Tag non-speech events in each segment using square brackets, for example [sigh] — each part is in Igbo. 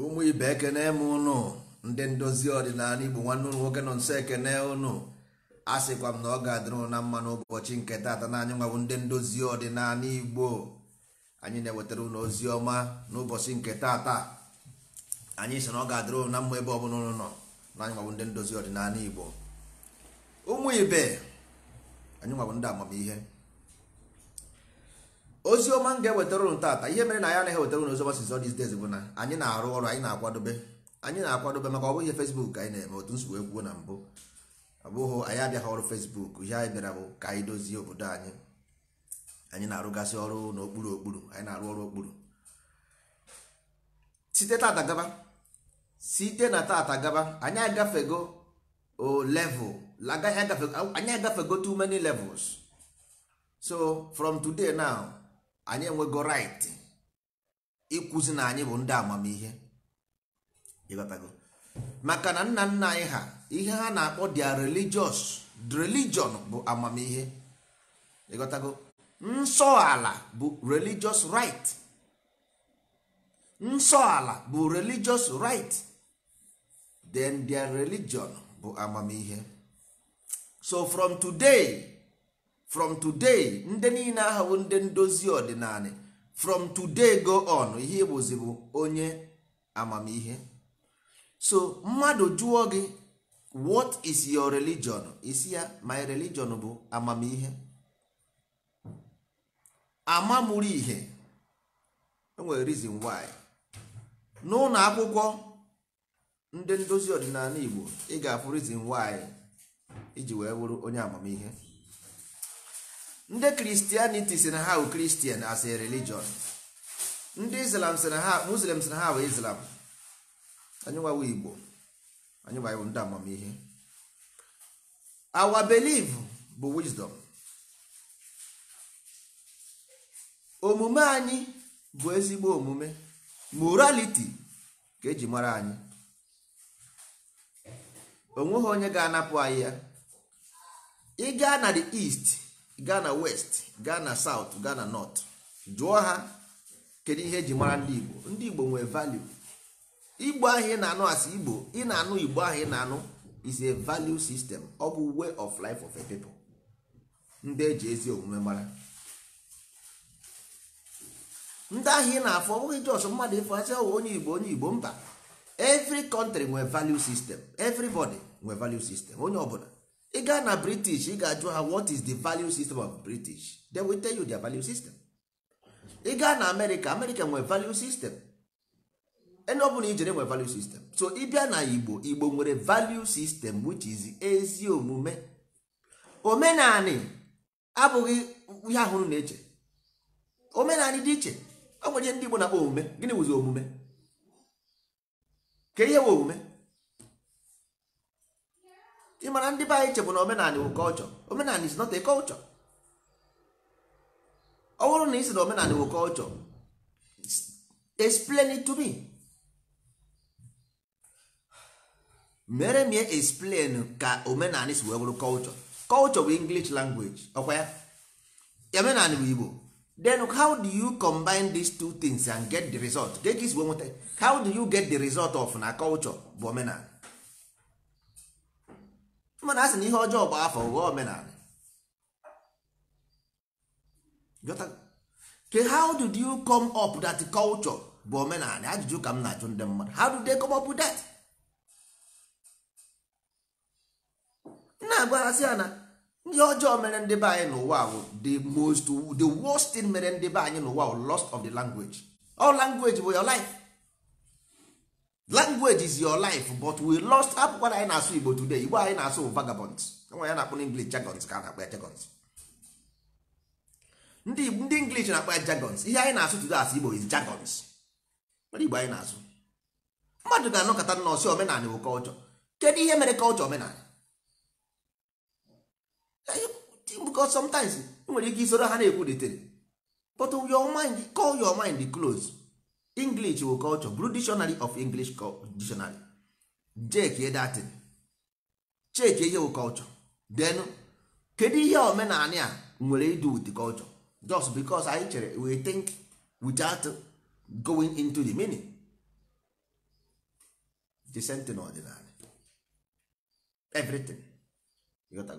ụmụ ibe ekene m ụnụ ndị ndozi ọdịnala igbo nwanne ụlụ nwoke nọ nso ekene ụnụ a sịkwa m na ọ ga-adịrụ na mma n'ụbọchị nke taata na anyị nwabụ ndị ndozi ọdịnala igbo anyị na-ewetara ụlọ ozi ọma n'ụbọchị nke taata anyị sị na ọ ga-adịrụ na mma ebe ọ bụla ụlọ nọ na anyị nwabụ ndị ndozi ọdịnala igbo ụmụ ibe anyị nwabụ ndị amamihe ozi ọma m ga-ewetara ụlọ taata ihe mere na ya anaghị ewetara ụlọ ozi ọma sizo these days bụ na anyị na-arụ ọrụ anyị na-akwadobe anyị na-akwadobe maka ọ bụghị Facebook anyị na-eme otu nsogbu ekwuo na mbụ abụghị anyị abịaghị ọrụ fesbuk ihe anyị bịara bụ ka anyị dozie obodo anyị anyị na-arụgasị ọrụ n'okpuru okpuru anyị na-arụ ọrụ okpuru site tata gaba site na tata gaba anyị agafego o level anyị agafego too many levels so from today now anyị enwego right ikwuzi na anyị bụ ndị amamihe ịbatago maka na nna nna anyị ha ihe ha na-akpọ dia religious religion bụ amamihe ịghọtago nsọ ala bụ religious right nsọ ala bụ religious right then their religion bụ amamihe so from today from today ndị niile ahụ ndị ndozi ọdịnala from today go on ihe bụzi bụ onye amamihe so mmadụ jụọ gị what is your religion isi ya my religion bụ amamihe amamuru ihe enwere reason why n'ụlọ akwụkwọ ndị ndozi ọdịnala Igbo ị ga-afụ reason why iji wee bụrụ onye amamihe ndị kristianity si na ha bụ Christian as a religion ndị Islam si na ha Muslim si na ha bụ Islam Anyị anyịnwawo igbo anyịnwawo ndị amamihe our belief bụ wisdom omume anyị bụ ezigbo omume morality ka eji mara anyị onweghị onye ga-anapụ anyị ya ị gaa na the east gaa na west gaa na south gaa na north jụọ ha kedu ihe eji mara ndị igbo ndị igbo nwere value igbo ahụ ị na-anụ asị igbo ị na-anụ igbo ahụ ị na-anụ is a value system ọ bụ way of life of a people ndị eji ezi omume mara ndị ahụ ị na-afọ ọ bụghị jos mmadụ ịfọ asị ọwụ oh, onye igbo onye igbo mba every country nwe value system everybody nwe value system onye ọbụla ị gaa na british ị ga-ajụ ha what is the value system of british they will tell you their value system ị gaa na america america nwe value system ene ọ bụla ijere nwere value system so ịbịa na igbo igbo nwere value system which is ezi omume omenani abụghị ihe ahụrụ na-eche omenani dị iche ọ nwere ndị igbo na-akpọ omume gịnị wụzi omume ka ihe wụ omume ị mara ndị be anyị chebụ na omenani wụ kọlchọ omenani is not a culture ọ bụrụ na ị sị na omenani wụ kọlchọ explain it to me. mere m explain ka omenala si wee bụrụ culture culture bụ english language ọkwa ya omenala bụ igbo then how do you combine these two things and get the result get esi wee nweta how do you get the result of na culture bụ omenala mana a na ihe ọjọọ bụ afọ ghọọ omenala ke how did you come up that culture bụ omenala ajụjụ ka m na-ajụ ndị mmadụ how do they come up with that? na-agwaghazị ya na ihe ọjọọ mere ndị be anyị n'ụwa bụ the most the worst thing mere ndị be anyị n'ụwa bụ lost of the language all language bụ your life language is your life but we lost akwụkwọ na anyị na-asụ Igbo today Igbo anyị na-asụ vagabonds nwa ya na-akpọ English jagons ka a na akpa ya jargons ndị ndị English na akpa ya jargons ihe anyị na-asụ today as Igbo is jagons mana Igbo anyị na-asụ mmadụ ga-anọkọta nọọsụ omenala bụ culture kedu ihe mere kọlchọ omenala because sometimes nwere ike isoro ha na-ekwulitere but your mind call your mind close english wo culture blue dictionary of english dictionary jeke datin cheke ihe wo culture then kedu ihe omenani a nwere idu with the culture just because anyị chere we think without going into the meaning the sentin ọdịnala everything you go.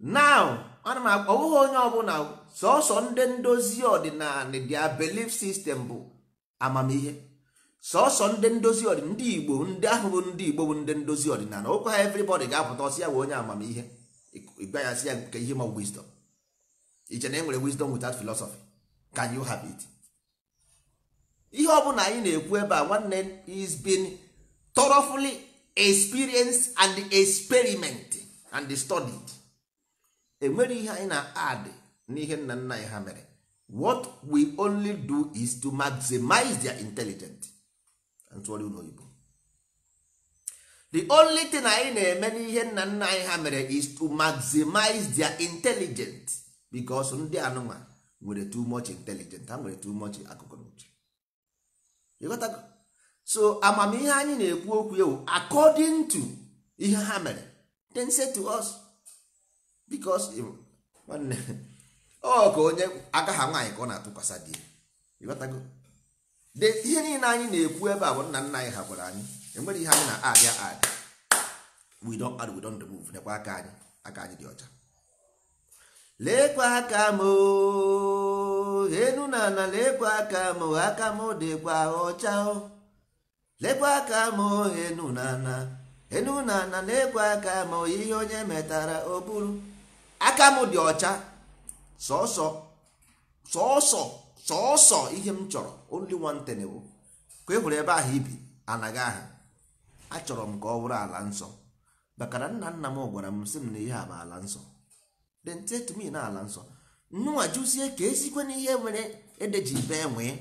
now ana m akpọwụghị onye ọbụla sọsọ ndị ndozi ọdịnala dia belief system bụ amamihe sọsọ ndị ndozi ọdịnala ndị igbo ndị ahụ bụ ndị igbo bụ ndị ndozi ọdịnala okwu ha everybody ga-apụta ọsị ya bụ onye amamihe ịgwa ya sị ya nke ihe ma wisdom iche na enwere wisdom without philosophy can you have it ihe ọbụla anyị na-ekwu ebe a nwanne is been thoroughly experienced and experiment and studied enwere ihe anyị na-add n'ihe nna nna anyị ha mere what we only do is to maximize their intelligence ntụgharị ụlọ oyibo the only thing anyị na-eme n'ihe nna nna anyị ha mere is to maximize their intelligence because ndị anụma nwere too much intelligence ha nwere too much akụkụ n'uche ịghọtago so amamihe anyị na-ekwu okwu ewu according to ihe ha mere then say to us bikos nwanne ọ ka onye aka ha nwaanyị ka ọ na-atụkwasị di ịghọtago de ihe niile anyị na-ekwu ebe a bụ nna nna anyị ha gwara anyị enwere ihe anyị na-abịa ad we don add we don remove nekwa aka anyị aka anyị dị ọcha lekwa aka m enu na ana lekwa aka m aka m dịkwa ọcha lekwa aka m enu na ana enu na ana lekwa aka m ihe onye metara oburu. aka m dị ọcha sọsọ sọsọ sọsọ ihe m chọrọ only one thing bụ ka e hụrụ ebe ahụ ibi anaghị aha achọrọ m ka ọ bụrụ ala nsọ maka nna nna m gwara m sị m na ihe a bụ ala nsọ dentetomi na ala nsọ nnụnwa jụzie ka esikwe na ihe nwere edeji be nwee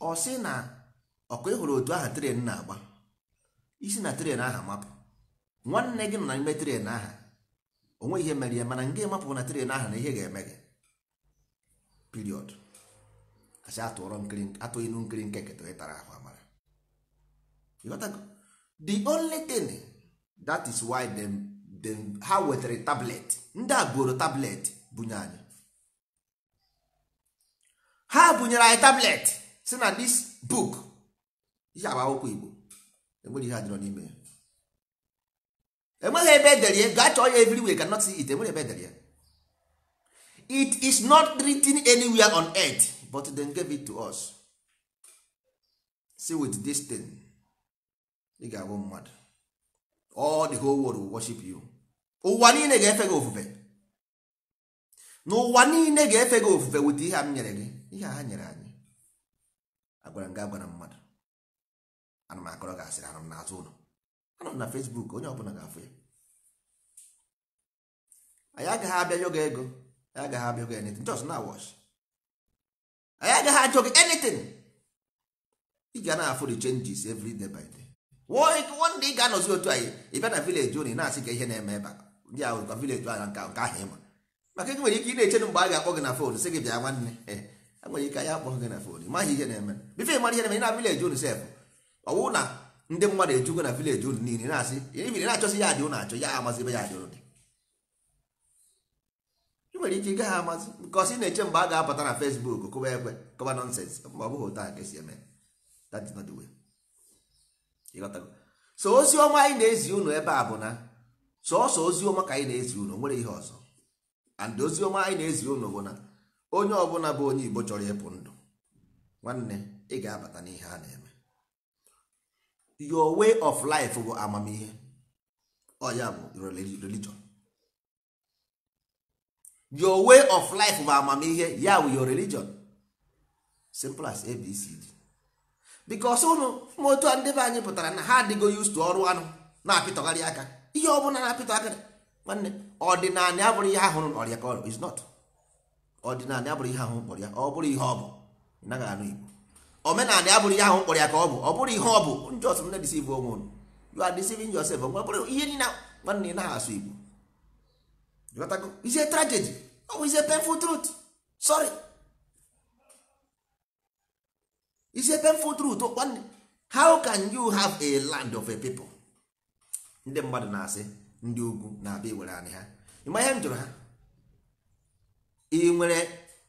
ọ sị na ọkụ ịhụrụ e otu aha tren na-agba isi na tren aha mapụ nwanne gị nọ n'ime tren aha onwe ihe mere ya mana nga emapụ na tren ahụ na ihe ga-eme gị piriod asị atụghị nu nkiri nke keta tara ahụ amara the only thing that is why them, them, ha wetara tablet ndị agboro tablet bunye anyị ha bunyere anyị tablet si na this book ihe agba akwụkwọ igbo enwere ihe adịrọ n'ime ya enweghị ebe edere ya gaa chọọ ya everywhere cannot see it enwere ebe edere ya it is not written anywhere on earth but then give it to us see with this thing ị ga-abụ mmadụ all the whole world will worship you ụwa niile ga-efe gị ofufe n'ụwa niile ga-efe gị ofufe wit ihe m nyere gị ihe ha nyere anyị agwara m gị agwara mmadụ ana m akọrọ gị asịrị n'azụ ụlọ anọ na Facebook onye ọbụla ga-afụ ya anyị agaghị abịa yoga ego anyị agaghị abịa yoga anything just na wash anyị agaghị ajụ gị anything ị ga na-afụ the changes every day by day one day ị ga-anọzi otu anyị ị bịa na village ị na-asị ka ihe na-eme ebe ndị ahụ ka village ahụ nke ahụ ịma maka ị nwere ike ị na-eche mgbe a ga-akpọ gị na fon sị gị bịa nwanne e nwere ike anyị akpọ gị na fon ịmaghị ihe na-eme bife ịmara ihe na-eme ị na village unu sef ọwụ na ndị mmadụ ejugo na vileji unu niile na-asị ibiri na-achọsị ya dị unu achọ ya amazi ebe ya dị unu dị ị nwere ike ịgaghị amazi bikos ị na-eche mgbe a ga-apụta na fesbuk kụba ekwe kọba nonsens mgbe ọ bụghị otu nke si eme that is not the way so ozi ọma anyị na-ezi unu ebe a bụ na sọọsọ ozi ọma ka anyị na-ezi unu nwere ihe ọzọ and ozi ọma anyị na-ezi unu bụ na onye ọbụla bụ onye igbo chọrọ ịpụ ndụ nwanne ị ga-abata n'ihe a na-eme your way of life bụ amamihe ọ ya bụ religion your way of life bụ amamihe ya bụ your religion simple as abcd because ụnụ ma otu a ndị be anyị pụtara na ha adịgo used to ọrụ anụ na-apịtọgharị aka ihe ọ bụla na-apịtọ aka nwanne ọdịnala abụrụ ihe ahụ ọrịa ka ọrụ is not ọdịnala abụrụ ihe ahụ kpọrọ ọ bụrụ ihe ọ bụ ị naghị anụ igbo omenala ya bụrụ ihe ahụ mkpọrọ ya ka ọ bụ ọ bụrụ ihe ọ bụ njọs m na-edisiv onwe unu you are deceiving yourself ọ bụrụ ihe nina nwanne na asụ igbo ghọtago ize tragedy ọ bụ ize painful truth sorry ize painful truth nwanne how can you have a land of a people ndị mmadụ na-asị ndị ugwu na-abịa iwere anyị ha ịma ihe m jụrụ ha ị nwere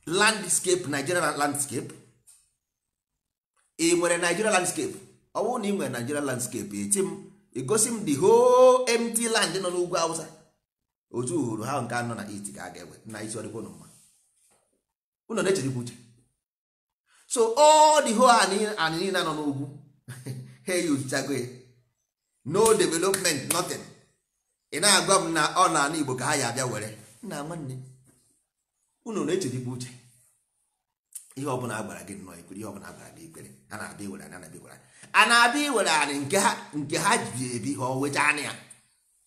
landscape Nigerian landscape ị nwere Nigeria landscape ọ bụrụ na ị nwere Nigeria landscape eti m Egosi m the whole empty land nọ n'ugwu Awụsa. otu uhuru ha nke anọ na it ga-aga ewe na isi ọdịkwa ụnụ mma Unu na-echerikwa uche so all the whole anị niile nọ n'ugwu ha [laughs] eyuchago ya no development nothing ị na-agwa m na ọ na ana Igbo ka ha ya abịa were nna nwanne unu na-echerikwa uche ihe ọ bụla agbara gị nnọọ ikwere ihe ọbụla agbara gị ikpere a na-abịa iwere anyị anabịa iwere a na-abịa iwere anyị nke ha nke ha ji ebi ha owecha anya ya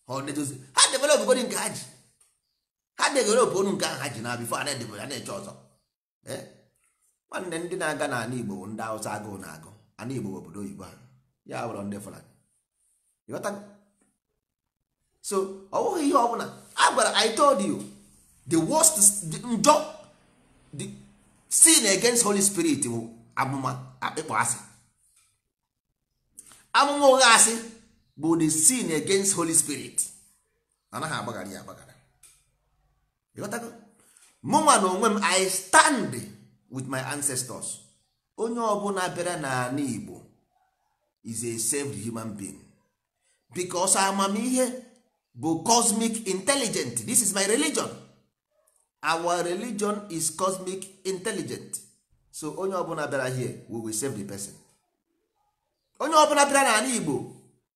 ha ọdedozi ha develop godi nke ha ji ha develop onu nke ahụ ha ji na bifo a na-edebere na-eche ọzọ e? nwanne ndị na-aga n'ala Igbo ndị Awụsa agụụ na-agụ ana Igbo bụ obodo oyibo ha ya bụrụ ndị Fulani ịghọtago so ọ bụghị ihe ọbụla a gwara I told you the worst njọ sin against holy spirit bụ amụma akpịkpọ asị amụma ụgha asị bụ the sin against holy spirit anaghị agbaghara ya agbaghara mụnwa na onwe m i stand with my ancestors onye ọbụla bịara n'ala igbo is a saved human being because amamihe bụ cosmic intelligent this is my religion our religion is cosmic intelligent so onye ọbụla bịara here we will save the person onye ọbụla bịara n'ala igbo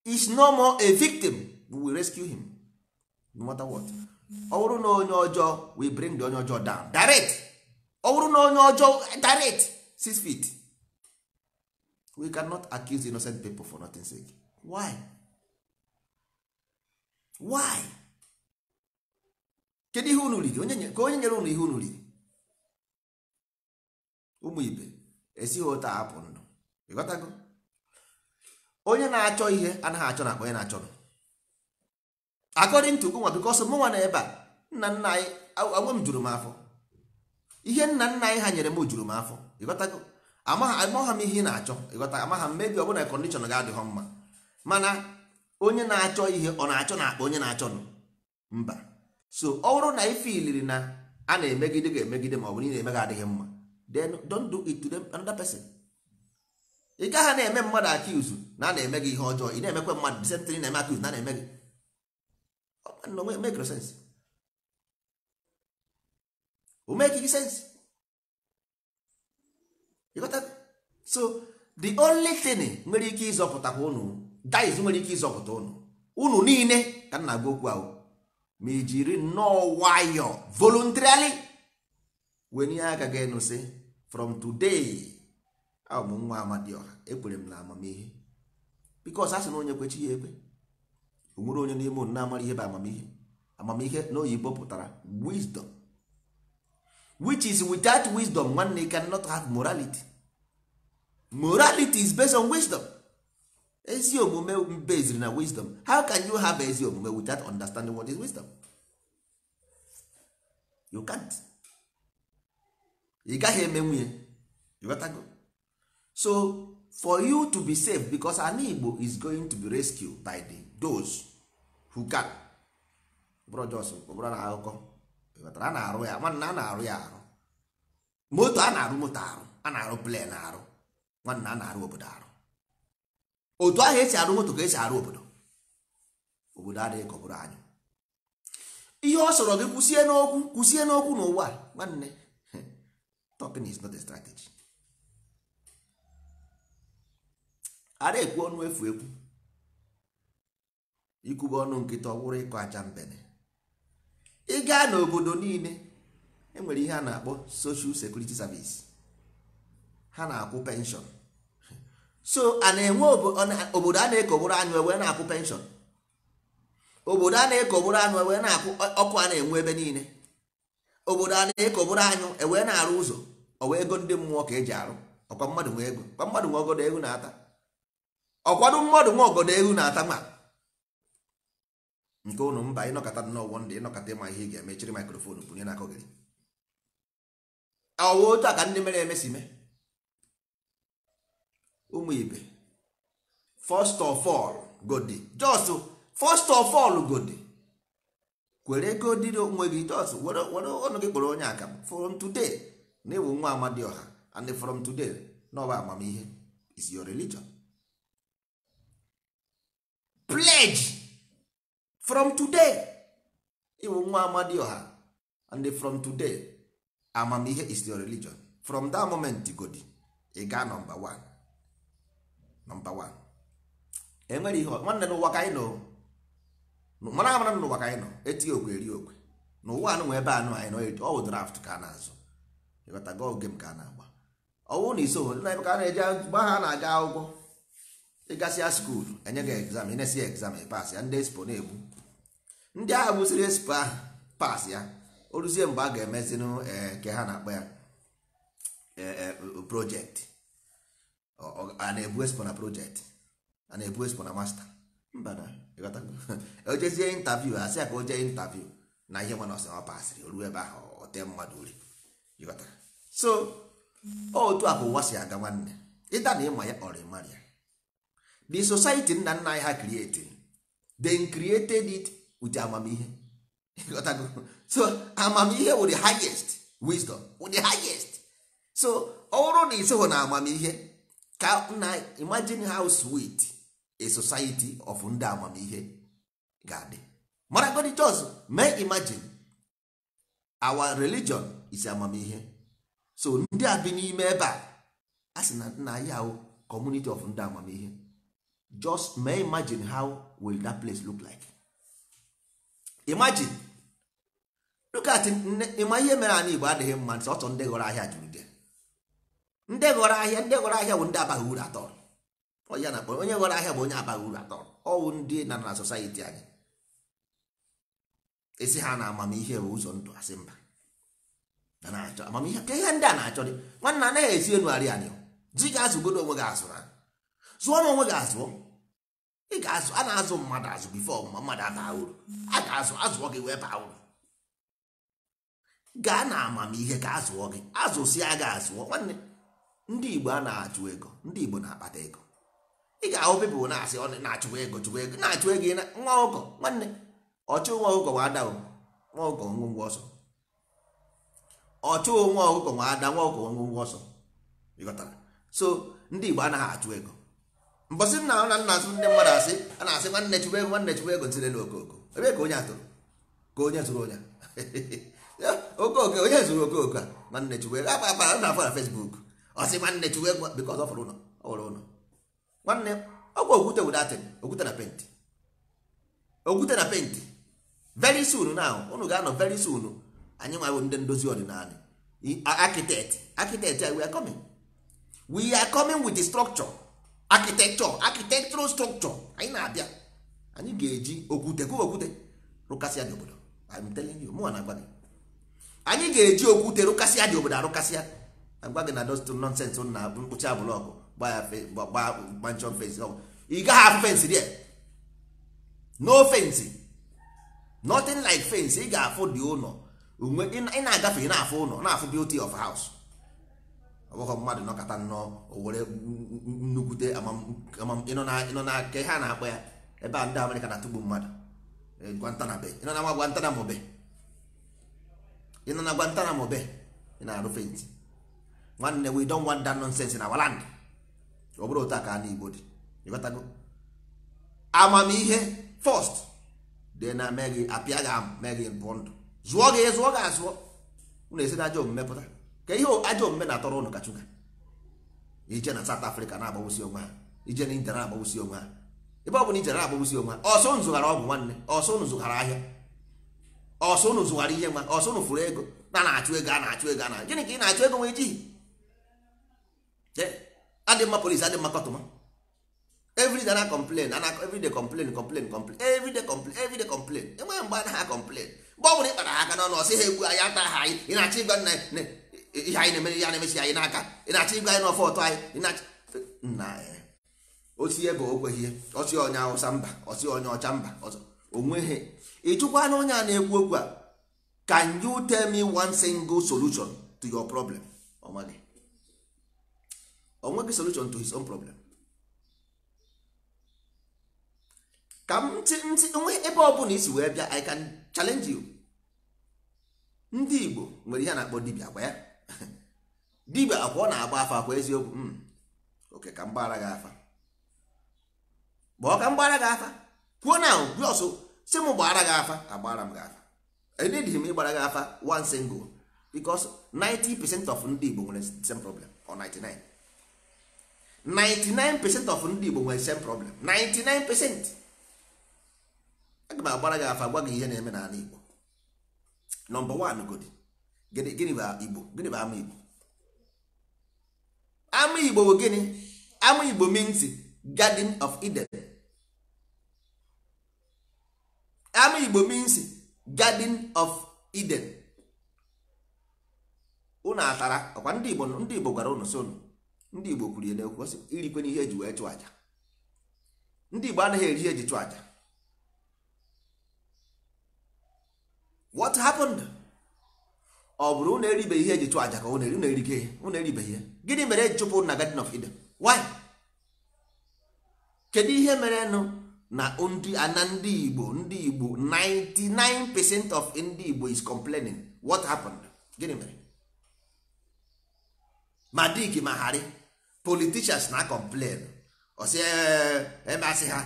is no more a victim we will rescue him no matter what ọ bụrụ na onye ọjọọ we bring the onye ọjọọ down direct ọ bụrụ na onye ọjọọ direct six feet we cannot accuse innocent people for nothing sake why why kedu ihe unu riri onye ka onye nyere unu ihe unu riri ụmụ ibe esighị ụta apụ ndụ ịghọtago onye na-achọ ihe anaghị achọ nakwa onye na-achọ akọdịn tugu nwa bikos mụnwa na ebe a nna nna anyị awe m juru m afọ ihe nna nna anyị ha nyere m juru m afọ ịghọtago amagha m ihe ị na-achọ ịghọta amagha m mebi ọbụla kọndishọn ga-adịghọ mma mana onye na-achọ ihe ọ na-achọ na akpa onye na-achọ nụ mba so ọ bụrụ na ife na a na-emegide ga-emegide ma ọ bụ na ị na-eme gị adịghị mma then don't do it to them another person ị gaghị na-eme mmadụ akiuzu na a na-eme gị ihe ọjọọ ị na-emekwa mmadụ disentịrị na-eme akiuzu na a na-eme gị make sense o make gị sense so the only thing nwere ike ịzọpụtakwa unu dice nwere ike ịzọpụta unu unu niile ka m na-agwa okwu ahụ ma no nnọọ nwayọ voluntarily wenye aka gị nụsị from today abụ m nwa amadioha ekwere m na amamihe bikos a sị na onye kwechi ya ekwe onwere onye n'ime unu na-amara ihe bụ amamihe amamihe n'oyibo pụtara wisdom which is without wisdom one cannot have morality morality is based on wisdom ezi omume based na wisdom how can you have ezi omume without understanding what is wisdom you can't ị gaghị eme nwunye go. so for you to be safe because an igbo is going to be rescued by the those who can bụrụ jos bụrụ na akụkọ ịghọtara a na-arụ ya nwanna a na-arụ ya arụ moto a na-arụ moto arụ a na-arụ plen arụ nwanna a na-arụ obodo arụ otu ahụ esi arụ moto ka esi arụ obodo obodo adịghị ka ọ anyị ihe ọ sọrọ gị kwụsie n'okwu kwụsie n'okwu n'ụwa nwanne [laughs] talking is not a strategy ara ekwu ọnụ efu ekwu ikwube ọnụ nkịta ọ bụrụ ịkọ aja mbene ị gaa n'obodo niile enwere ihe a na-akpọ social security service ha na-akwụ penshọn so a na-enwe obodo a na-ekogburu anụ ewee na-akwụ penshọn obodo a na-ekogburu anụ ewee na-akwụ e, ọkụ a na-enwe ebe niile obodo a na-ekogburu anyụ ewee na-arụ ụzọ ọwa ego ndị mmụọ ka eji arụ ọkwa mmadụ nwe ego ọkwa mmadụ nwe ọgọdọ egwu na-ata ọkwado mmadụ nwe ọgọdọ egwu na-ata ma nke ụnụ mba ịnọkọta n'ọgwọ ndị ịnọkọta ịma ihe ị ga-emechiri mikrofon na n'aka gị ọwa otu a ka ndị mere emesi mee ụmụ ibe first of all godi just first of all godi kwere godi onwe gị just were ọnụ gị kpọrọ onye aka from today na ịwụ nwa ọha and from today na ọba amamihe is your religion pledge from today ịwụ nwa ọha and from today amamihe is your religion from that moment godi ị gaa number one nọmba wan enwere ihe nwanne n'ụwa ka anyị nọ mara amara n'ụwa ka anyị nọ etighị okwe eri okwe n'ụwa anụ nwe ebe anụ anyị nọ ọwụ draft ka a na-azụ ịghọtago oge m ka a na-agba ọwụ na iso na ebe ka a na-eje gba ha na-aga akwụkwọ ịgasịa skuulu enye gị egzam ịnesi egzam ịpas ya ndị espo na-egbu ndị agha gbusiri espo ahụ pas ya o ruzie mgbe a ga-emezinụ ee eh, ke ha na-akpa ya eh, eh, projekti a na-ebu espo na project a na-ebu espo na masta mba na ojezie intaviu asị ya ka o jee intaviu na ihe mana ọsị ọ asịrị o ebe ahụ ote mmadụ uri so otu a bụ ụwa si aga nwanne ịda na ịma ya ọrị mara ya the society nna nna anyị ha created then created it with amamihe [laughs] so amamihe wụ the highest wisdom wụ the highest so ọ bụrụ na isoghị na amamihe ka na imagine how sweet a society of ndị amamihe ga-adị maragodi just may imagine our religion is amamihe so ndị a bi n'ime ebe a a sị na nna ya community of ndị amamihe just may imagine how will that place look like imagine look at ịma ihe mere anyị igbo adịghị mma nsị ọtọ ndị ghọrọ ahịa jụrụ ndị ghọrọ ahịa ndị ghọrọ ahịa bụ ndị abaghị uru atọ onye na onye ghọrọ ahịa bụ onye abaghị uru atọ ọwụ ndị na na society anyị esi ha na amamihe bụ ụzọ ndụ asị mba na-achọ amamihe ka ihe ndị a na-achọ dị nwanna anaghị esi enugharị anyị di gị azụgodo onwe gị azụ zụọ na onwe gị azụọ ị ga-azụ a na-azụ mmadụ azụ bifo ma mmadụ abaa uru a ga-azụ azụọ gị wee baa uru gaa na amamihe ka azụọ gị azụsịa gị azụọ nwanne ndị igbo a na-achụ ego ndị igbo na-akpata ego ị ga-ahụ pipụl na-asị ọ na-achụwa ego chụwa ego na-achụ ego nwa ọkụkọ nwanne ọchụ nwa ọkụkọ nwa ada nwa ọkụkọ ngwongwo ọsọ ọchụ nwa ọkụkọ nwa ada nwa ọkụkọ ngwongwo ọsọ ịghọtara so ndị igbo anaghị achụ ego mbọsị nna na nna azụ ndị mmadụ asị a na-asị nwanne chụwa ego nwanne chụwa ego ntirelu okooko ebe ka onye atụrụ ka onye zụrụ onye [laughs] okooko onye zụrụ okooko a nwanne chụwa ego akpa akpa na afọ na fesbuk ọsị nwanne chụwa ego bikọz ọ fọrọ ụlọ ọ wụrụ ụlọ nwanne ọgwụ okwute wudatịn okwute na penti okwute na penti very soon na ụnụ ga-anọ very soon anyị nwa ndị ndozi ọdịnala architect architect we are coming we are coming with the structure architecture architectural structure anyị na-abịa anyị ga-eji okwute kụwa okwute rụkasịa dị obodo I'm telling you na-agwa anyị ga-eji okwute rụkasịa dị obodo arụkasịa agwa gị na dostụ nonsens na mkpuchi mkpụchi abụlọkụ gbanchọn fensi ọgwụ ị gaghị afụ fensi rie no fensi nothing like fensi ị ga-afụ dị ụlọ ị na-agafe ị na-afụ ụlọ na-afụ beauty of house ọ bụghị mmadụ nọkọta nnọọ owere were nnukwute ịnọ na nke ha na-akpọ ya ebe a ndị amerịka na-atụgbu mmadụ eh, gwantanabe ịnọ na gwantanamobe ịnọ na gwantanamobe ị na-arụ fensi nwanne we don want that nonsense na our land ọ bụrụ otu a ka ndị Igbo dị ịghọtago amamihe first dị na mee gị apịa gị mee bụ ndụ zụọ gị zụọ gị azụọ unu esi na ajọ omume pụta ka ihe ajọ omume na-atọrọ unu kachuka ije na South Africa na-agbawusi onwe ha ije na India na-agbawusi onwe ha ebe ọ bụla ije na-agbawusi onwe ha ọsọ unu zụghara ọgwụ nwanne ọsọ unu zụghara ahịa ọsọ unu zụghara ihe nwa ọsọ unu furu ego na na-achụ ego a na-achụ ego a na gịnị ka ị na-achụ ego nwee jighị adị mma polisi adị mma kọtụma every day na complain ana every day complain complain complain every complain every complain enweghị mgbe anaghị complain mgbe ọ bụrụ ịkpara ha aka n'ọnụ ọsị ha egbu anyị ata ha anyị ị na-achọ ịgwa ihe anyị na-emere ihe na-emesi anyị n'aka ị na-achọ ịgwa anyị ọfọ ọtọ anyị nna ya osi ebe o kweghị ọsị onye awụsa mba ọsị onye ọcha mba onweghị ịchụkwa onye a na-ekwu okwu a can you tell me one single solution to your problem ọmadị onweghị solution to his own problem ka m ntị ntị onwe ebe ọ bụla isi wee bịa i can challenge you ndị igbo nwere ihe na-akpọ dibia gwa ya [laughs] dibia akwa ọ na-agba afa akwa eziokwu hmm. oke ka m gị afa gbaa ka m gị afa kwuo na gwe ọsọ si m gbara gị afa agbara m gị afa edịdịghị m ịgbara gị afa one single because 90 percent of ndị igbo nwere the same problem or 99 99% of ndị Igbo nwere same problem 99% aga m agbara gị afa gwa gị ihe na-eme n'ala Igbo nọmba 1 godi gịnị bụ Igbo gịnị bụ ama Igbo ama Igbo bụ gịnị ama Igbo means Garden of Eden ama Igbo means Garden of Eden unu atara ọkwa ndị Igbo ndị Igbo gwara unu so unu ndị igbo kwuru ya n'ekwu ọsị irikwe n'ihe eji wee chụọ aja ndị igbo anaghị eri ihe eji chụọ aja what happened ọ bụrụ na eribeghị ihe eji chụọ aja ka ụna eri na-erike ụna eribeghị gịnị mere eji chụpụ na Garden of Eden why kedu ihe mere nụ na ndị ana ndị igbo ndị igbo 99% of ndị igbo is complaining what happened gịnị mere ma dik ma harị politicians na complain ọsị emasị ha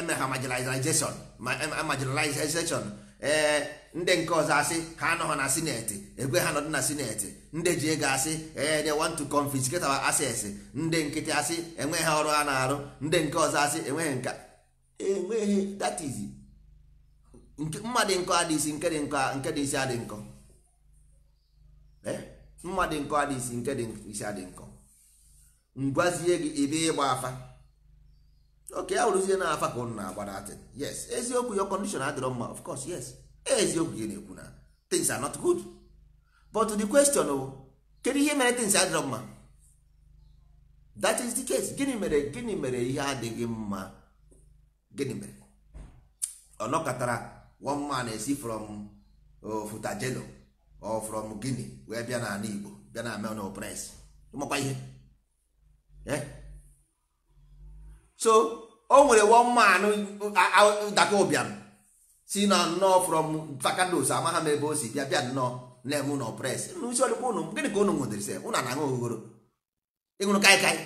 eme ha marginalization eh, eh, marginalization ee eh, ndị nke ọzọ asị ha anọghị na sineti egwe ha nọdụ na sineti ndị ji ego asị ee they want to confiscate our assets ndị nkịtị asị enweghị ọrụ ha na-arụ ndị nke ọzọ asị enweghị nka enweghị that is mma dị nkọ nke dị nkọ nke dị isi adị nkọ mma dị nkọ adịghịsi nke dị isi adị nkọ ngwazie gị ebe ịgba afa oke ya wụrụzie na afa ka ụnụ na-agba na datin yes eziokwu yo condition adịrọ mma of course yes eziokwu gị na-ekwu na things are not good but the question bụ kedu ihe mere things adịrọ mma that is the case gịnị mere gịnị mere ihe adịghị mma gịnị mere ọ nọkọtara one man esi from oh, futajelo or from guinea wee bịa n'ala igbo bịa na amen opres ihe Eh? so o nwere one man dakobiam si na nnọọ from vakados amaha m ebe o si bịa bịa nnọọ na-eme ụlọ pres n'isi ọdịkwa ụnụ gịnị ka ụnụ nwedịrịsị ụnụ na aṅụ oghogoro ịṅụrụ kaikai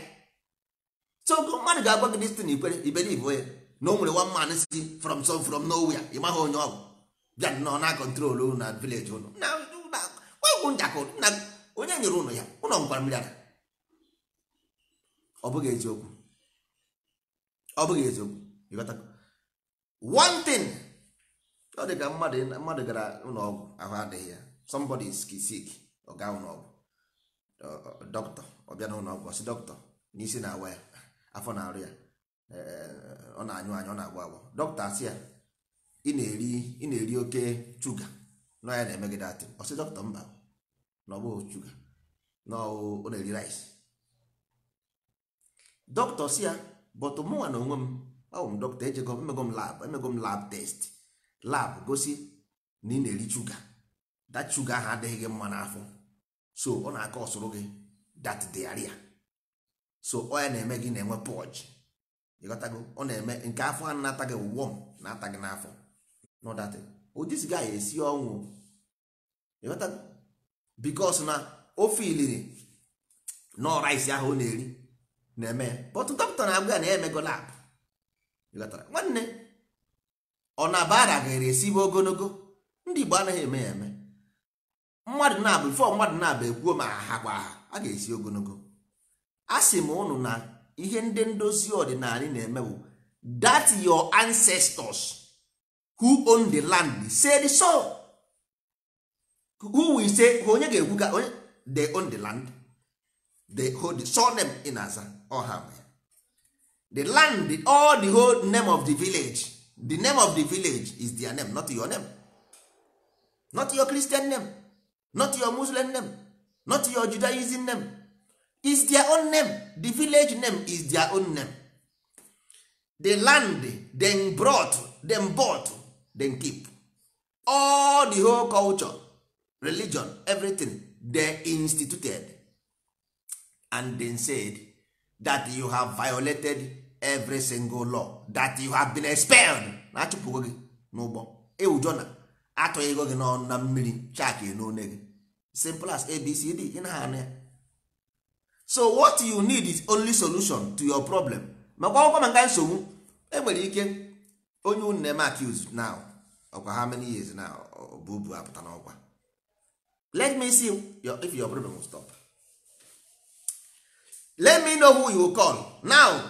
so mmadụ ga-agwa gị destin ikwere iberibe ya na o nwere one man si from some from nowia ị maghị onye ọgwụ bịa nnọọ na kọntrol na vileji ụnụ onye nyere ụnụ ya ụlọ nkwara mmiri ara ọ bụghị eziokwu ọ bụghị eziokwu ịghọta one thing ọ dị ka mmadụ mmadụ gara ụlọọgwụ ahụ adịghị ya somebody is sick ọ gaa ụlọọgwụ dọkịta ọ bịa n'ụlọọgwụ ọsị dọkịta n'isi na-awa ya afọ na-arụ ya eh, ọ na-anyụ anya ọ na-agba agba dọkịta asị ya ị na-eri oke shuga na ya na-emegide atị ọsị dọkịta mba na ọ bụghị shuga na ọ na-eri rice dọkịta si ya bọtụ mụnwa na onwe m awụ m dọkịta ejego emego m lab emego m lab test lab gosi na ị na-eri shuga that shuga ahụ adịghị gị mma n'afọ so ọ na-aka ọsụrụ gị that diarrhea so ọ ya na-eme gị na-enwe pọj ịghọtago ọ na-eme nke afọ ahụ na-ata gị wọm na-ata gị n'afọ n'ọdatị odisi gaghị esi ọnwụ ịghọtago bikos na ofe iliri nọ rice ahụ ọ na-eri na-eme but dọkịta na-agwa ya na ya emego labụ nwanne ọ na bara gaere esibe ogologo ndị Igbo anaghị eme ya eme mmadụ na-abụ fọ mmadụ na-abụ ekwuo ma aha gwa ha a ga-esi ogologo a sị m ụnụ na ihe ndị ndozi ọdịnala na-eme bụ that your ancestors who own the land said so who will say onye ga-ekwu ka they own the land they hold the surname in aza the land the, all the whole name of the village the name of the village is their name not your name not your christian name not your muslim name not your judaism name is their own name the village name is their own name the land them brought them bought them keep all the whole culture religion everything they instituted and then said that you have violated every single law that you have been expelled na achụpụgo gị n'ụgbọ ewujo na atụghị ego gị n'ọnụ na mmiri chak n'one gị simple as abcd ị na ya so what you need is only solution to your problem makwa akwụkwọ maka nsogbu enwere ike onye unu na-eme accuse now ọkwa how many years now ọbụbu apụta n'ọkwa let me see if your problem will stop let me know who you call now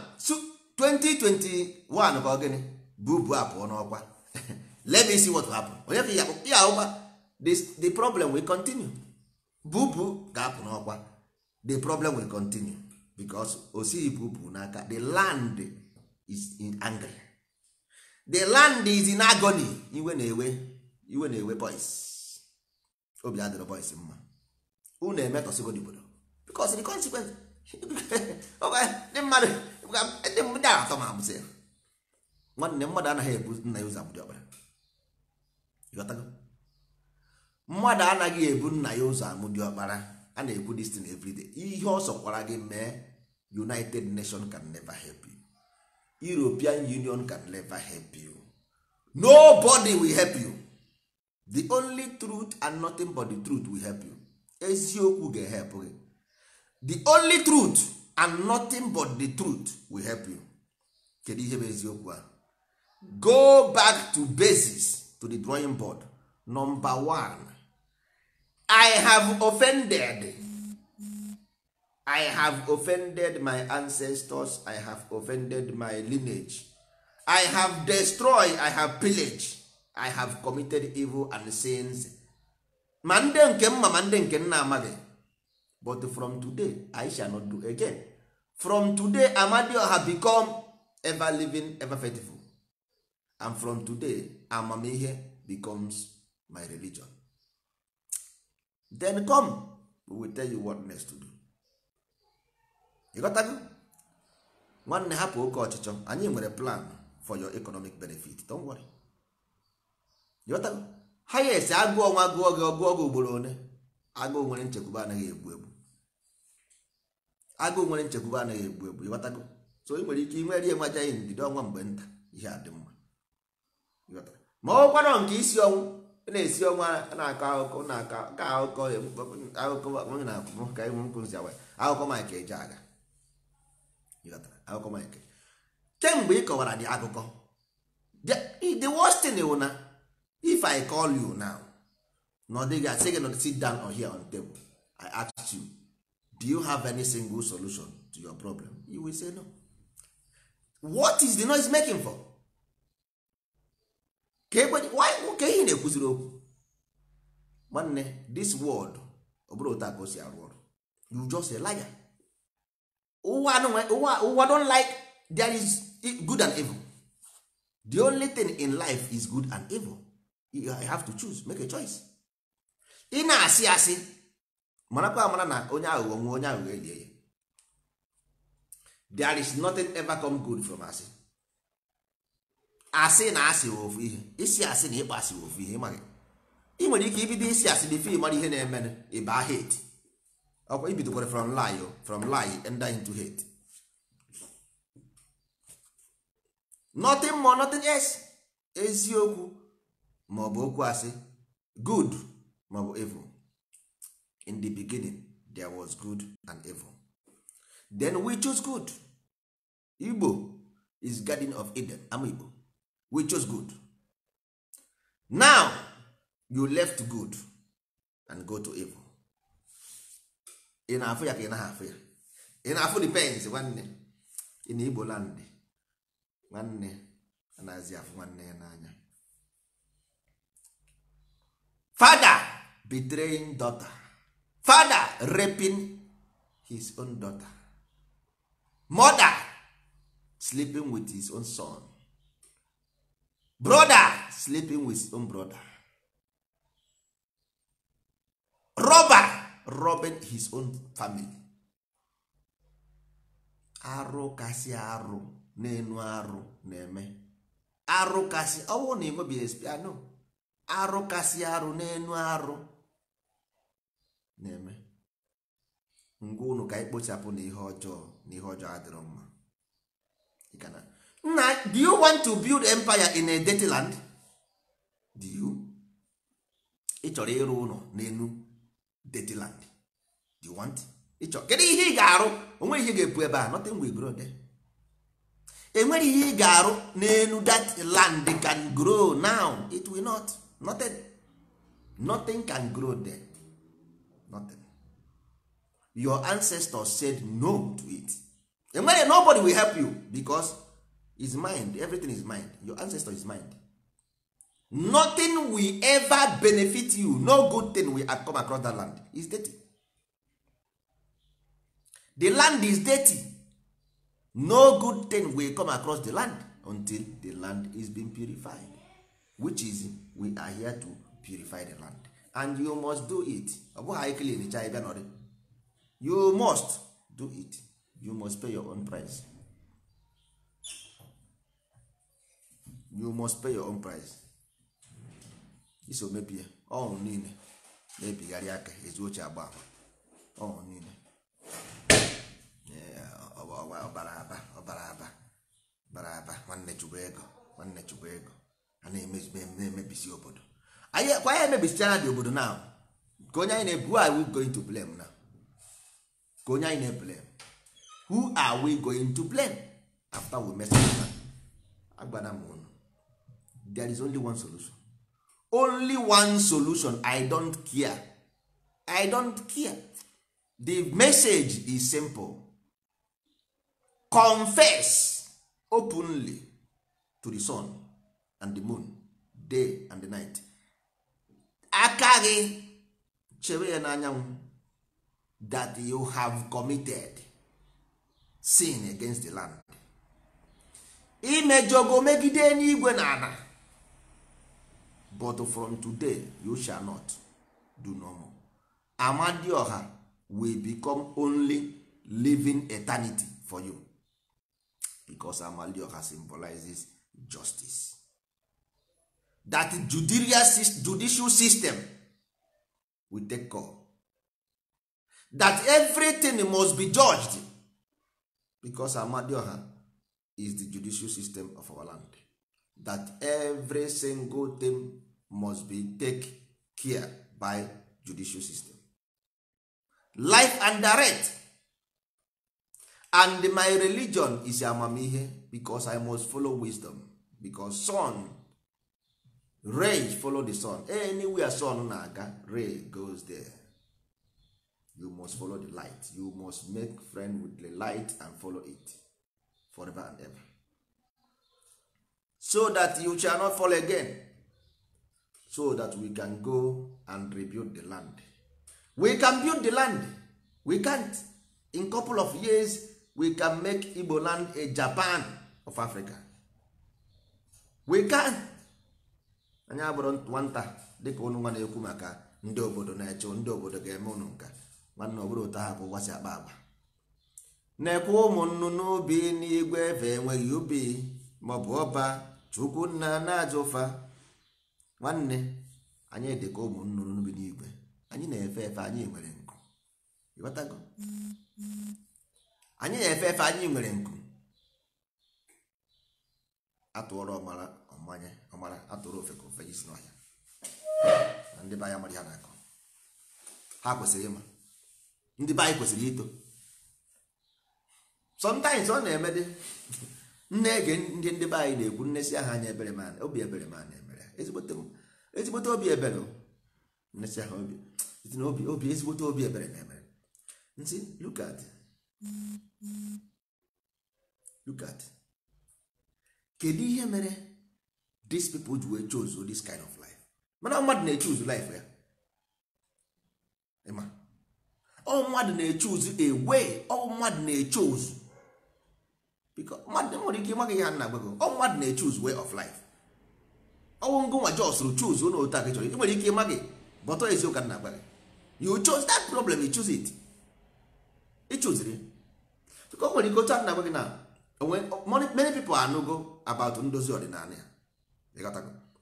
2021 gịnị ogene bubu apụọ n'ọkwa [laughs] let me see what happen onye ka ya ụgba the problem will continue bubu ga-apụ n'ọkwa the problem will continue because osighi bubu n'aka the land is in angry the land is in agony iwe na-ewe iwe na-ewe boys obi adịrọ boys mma unu emetọsigo dibodo because the consequence ndị mmadụ ndị a atọ ma abụzi nwanne mmadụ anaghị ebu nna ya ụzọ abụdị ọkpara. mmadụ anaghị ebu nna ya ụzọ amụdị ọkpara a na ebu dis thing ihe ọ sọkwara gị mee united nation can never help you european union can never help you nobody will help you the only truth and nothing but the truth will help you eziokwu ga-ehepụ gị the only truth and nothing but the truth will help you kedu ihe bụ eziokwu a go back to basis to the drawing board number one i have offended i have offended my ancestors i have offended my lineage i have destroyed i have pillaged i have committed evil and sins ma ndị nke mma ma ndị nke nna amaghị but from today i shall not do again from today amadioha become ever living ever faithful and from today amamihe becomes my religion then come we will tell you what next to do ịghọtago nwanne hapụ oke ọchịchọ anyị nwere plan for your economic benefit don't worry ịghọtago ha ya esi agụọ nwa gụọ gị ọgụọ gị ugboro one agụụ nwere nchekwuba anaghị egbu egbu agụ nwere nchekwube anaghị egbu egbu ịghọtago so ị nwere ike nwere enwe ihe ndidi ọnwa mgbe nta ihe a dị mma ma ọ nọ nke isi ọnwụ na-esi ọnwa na-akọ akụkọ na-akọ ka akụkọ na akwụkwọ ka ịnwe nkwụ nzi awa akụkọ akụkọ kemgbe ị kọwara dị akụkọ the worst thing wụ na if I call you now na ọ dịghị asị gị nọ sit do you have any single solution to your problem you will say no what is the noise making for ka why ka ihe na-ekwuziri okwu nwanne this world ọ bụrụ otu ka o si arụ ọrụ you just a liar ụwa ụwa don like there is good and evil the only thing in life is good and evil you have to choose make a choice ị na-asị asị marakwa amara na onye aghụghọ nwe onye aghụghọ elie ya there is nothing ever come good from asị asị na asị ofu ihe isi asị na ịkpa asị ofu ihe ịmaghị ị nwere ike ibido isi asị dị fim mara ihe na-eme ịba hate ọkwa ibidokwara from lie from lie and into hate nothing more nothing else eziokwu maọbụ okwu asị good maọbụ evil in the beginning there was good and evil then we chose good igbo is garden of eden am igbo we chose good now you left good and go to evil ị na-afụ ya ka ị naghị afụ ya ị na-afụ depends nwanne ị na igbo land nwanne anaghịzi afụ nwanne ya n'anya father betraying daughter father raping his own daughter mother sleeping with his own son brother sleeping with his own brother robber robbing his own family arụ kasị arụ na-enu arụ na-eme arụ kasị ọnwụ oh, na enwebeghị espiano ah, arụ kasị arụ na-enu arụ na-eme ngwa unu ka anyị kpochapụ na ihe ọjọọ na ihe ọjọọ adịrọ mma nna do you want to build empire in a dirty land do you ị chọrọ ịrụ ụlọ n'enu dirty land do you want ịchọ kedu ihe ị ga-arụ onwe ihe ga-epu ebe a nothing will grow there enwere ihe ị ga-arụ n'elu that land can grow now it will not nothing can grow there nothing your ancestors said no to it enwere nobody will help you because is mind everything is mind your ancestor is mind nothing will ever benefit you no good thing will come across that land is dirty the land is dirty no good thing will come across the land until the land is being purified which is we are here to purify the land and you must do it ọ bụghị anyị clean cha ịbịa nọrị you must do it you must pay your own price you must pay your own price iso mebie ọnwụ oh, niile na-ebigharị aka ezu oche agba ọnwụ oh, niile ọbara oh, aba ọbara aba bara aba nwanne chukwu ego nwanne chukwu ego a na-emebisi obodo kwa ya emebisichara dị obodo na ka onye anyị na-ebu are we going to blame na ka onye anyị na-eblame who are we going to blame after we mess up agbana m unu there is only one solution only one solution i don't care i don't care the message is simple confess openly to the sun and the moon day and the night aka gị chebe ya n'anyanwụ that you have committed sin against the land imejọgo megide n'igwe na ana but from today you shall not do no more amadioha will become only living eternity for you because amadioha symbolizes justice that judicial system will take call that everything must be judged because amadioha is the judicial system of our land that every single thing must be take care by judicial system life and direct and my religion is amamihe because i must follow wisdom because son rain follow the sun anywhere sun na-aga goes there you must follow the light you must make friend with the light and follow it forever and ever so that you shall not fall again so that we can go and rebuild the land we can build the land we can't in couple of years we can make igbo land a japan of africa we can anyị abụrụ nwata dịka ụnụ nwa na-ekwu maka ndị obodo na-eche ndị obodo ga-eme ụnụ nka nwanne ọ bụrụ ụta ahụ bụ ụgbasị akpa agba na-ekwu ụmụ nnụnụ n'igwe ebe enweghị ubi ma bụ ọba chukwu nna na-aja ụfa nwanne anyị dị ka ụmụ n'igwe anyị na-efe efe anyị nwere nkụ anyị nwere nkụ atụọrọ ọmara ọmanye ọmara atụrụ ofe ka ofe isi n'ọhịa na ndị be anya mara ya na-akọ ha kwesịrị ịma ndị be anyị kwesịrị ito sometimes ọ na-eme dị nne ege ndị ndị be anyị na-ekwu nne si aha anya ebere ma obi ebere ma na-emere ezigbote obi ebere nnesi aha obi na obi obi ezigbote obi ebere na-emere nsi look at look at kedu ihe mere these people ji wee chose this kind of life mana mmadụ na-echoose life ya ịma ọ mmadụ na-echoose a way ọ mmadụ na-echoose because mmadụ nwere ike ịmaghị ya nna gbego ọ mmadụ na-echoose way of life ọnwụ ngụnwa jọsụrụ choose ụlọ otu aka chọrọ nwere ike ịmaghị bọtọ eziụka nna gbaghị you chose that problem you choose it ịchụziri ka o nwere ike otu a nna gbaghị na many people are anụgo about ndozi ọdịnala ya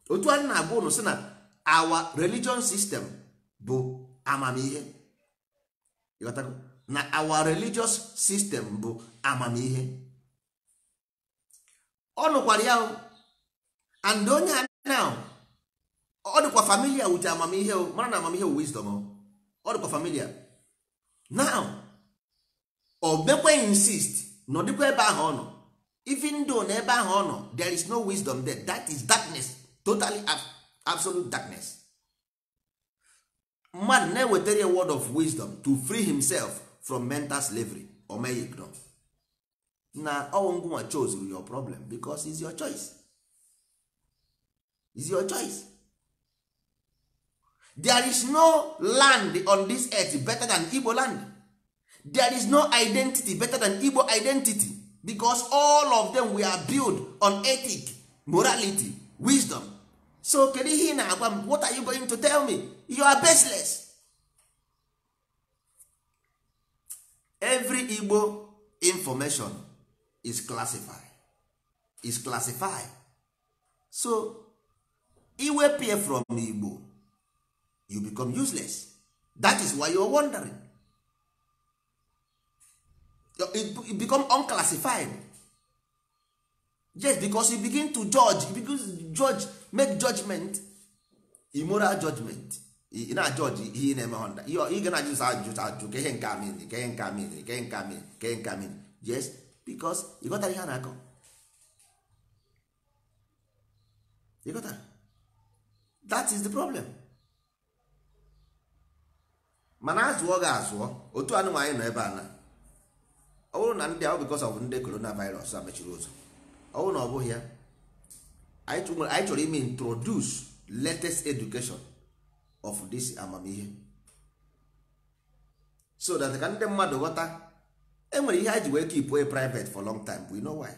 otu anyị na-agwa ụnụ si na our religion system bụ amamihe na our religious system bụ amamihe ọ nụkwara ya and onye now ọ dịkwa familia wit amamihe mara na amamihe wisdom ọ dịkwa familia now ọ bekwe insist na ọ dịkwa ebe ahụ ọ nọ even though na ebe ahụ ọ nọ there is no wisdom there that is darkness totally absolute darkness man na-ewetara a word of wisdom to free himself from mental slavery o na ọnwụ ngwụnwa chose your problem because is your choice is your choice there is no land on this earth better than Igbo land there is no identity better than Igbo identity because all of them we are built on ethic morality wisdom so kedu ihe ị na-agwa m what are you going to tell me you are baseless every igbo information is classified is classified so iwepụ from igbo you become useless that is why you are wondering it, it become unclassified just because you begin to judge you begin to judge make judgment immoral judgment judge, na judge, ihe ị na-eme honda ị ga na-ajụ ajụ judge, ka judge, nke judge, ka ihe nke amiri ka ihe nke amiri ka ihe nke yes because ị ghọtara ihe a na-akọ ị ghọtara that is the problem mana azụọ ga azụọ otu anụmanụ anyị nọ ebe a na ọ bụrụ na ndị ahụ because bụ ndị coronavirus a mechiri ụzọ ọ na ọ bụghị ya anyị chọrọ ime introduce latest education of this amamihe so that ka ndị mmadụ ghọta enwere ihe anyị ji wee keep way private for long time we know why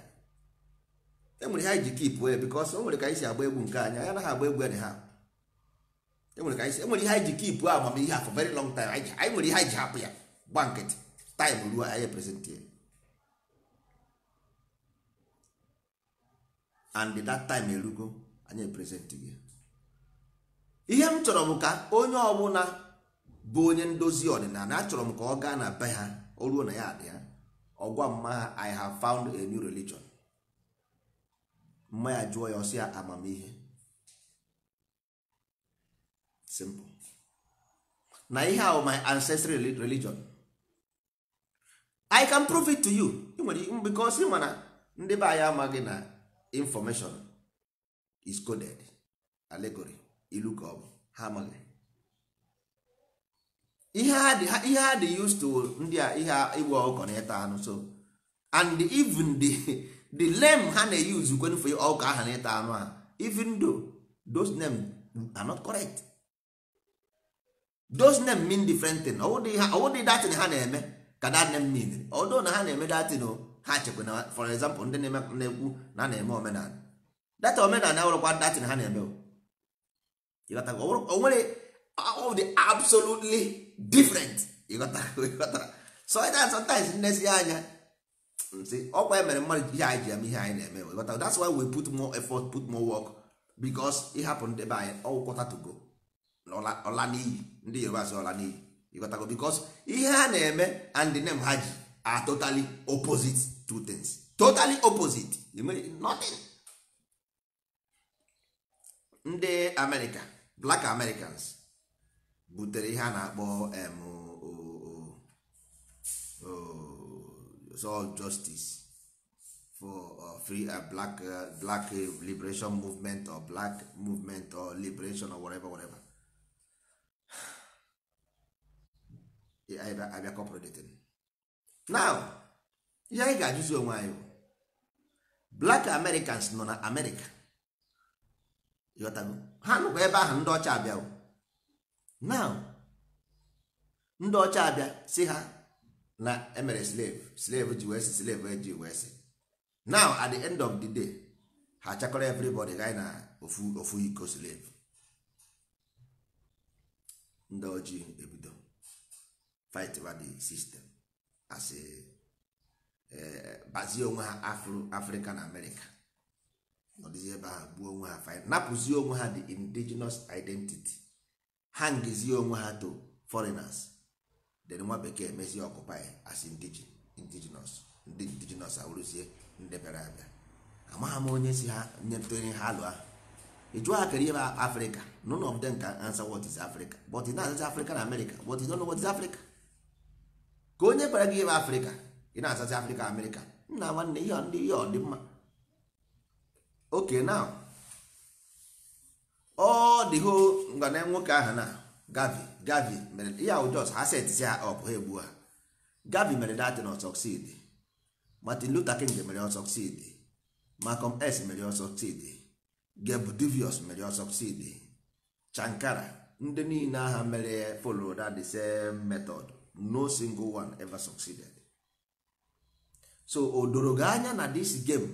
enwere ihe anyị ji keep way because o ka anyị si agba egwu nke anya agba egwu ha enwere e ihe anyị ji keep amamihe for very long time anyị ihe anyị ji hapụ ya gba nkịtị time ruo anyị present and that time erugo anyị present gị ihe m chọrọ m ka onye ọbụla bụ onye ndozi ọdịnala achọrọ m ka ọ gaa na be ha o ruo na ya adị ha ọgwa mma ha i have found a new religion mma ya jụọ ya ọsịa ya amamihe simple na ihe ahụ my ancestral religion i can prove it to you because ị mana ndị be anyị amaghị na information is coded allegory ilu ka ọ bụ ha ihe ha dị used to ndị a ihe ịgba na ịta anụ so and even the the name ha na-use kwenu for ọkụ aha na ịta anụ ha even though those names are not correct those names mean different thing ọ wụdị datin ha na-eme ka dat name mean although na ha na-eme datin o ha chekwa na for example ndị na-ekwu na a na-eme omenala data omenala awụrụkwa datin ha na-eme o nwere of the absolutely different so sometimes nnezi anya si ọkwa emere mmadụ ihe anyị ji eme ihe anyị na-eme ịghọta that's why we put more effort put more work because it happened ebe anyị ọgwụkọta to ọla n'iyi ndị yoruba asị ọla n'iyi ịghọtago because ihe ha na-eme and the name ha ji are totally opposite two things totally opposite nothing ndị amerịka black americans butere ihe a na-akpọ all justice for uh, free uh, black uh, black liberation movement or black movement or liberation or whatever whatever abịa kọpụrụ datin now ihe anyị ga-ajụzi onwe anyị bụ black americans nọ na amerịka ha nụkwa ebe ahụ ndị ọcha abịa now ndị ọcha abịa si ha na emere slave slave ji wee si slave ji wee si now at the end of the day ha chakọrọ everybody gaa na ofu ofu iko slave ndị ojii ebido fight about the system as a Eh, bazie onwe ha afro afrịka na amerịka ọdịzi ebe a gbuo onwe ha fine napụzi onwe ha the indigenous identity ha ngezie onwe ha to foreigners then nwa bekee mezie ọkụpa as indigenous ndị indigenous awụrụzie ndị bịara abịa amaghị m onye si ha nyetụnye ha alụ ahụ ịjụ ha kere ihe afrịka none of them nka answer what is africa but na azacha afrịka na amerịka but you don't is africa ka onye kpara gị ebe afrịka ị na-azazi afrịka amerịka nna nwanne ihe ndị ihe ọ dị mma oke na ọ dịho ngana nwoke ahụ na gavi gavi mere ihe ahụ jos ha setịzi ha ọp ha egbu ha gavi mere datin ọ sọksid martin luther king mere ọ sọksid malcolm s mere ọ sọksid gebdivius mere ọ sọksid chankara ndị niile aha mere follow that the same method no single one ever succeeded so o doro gị anya na this game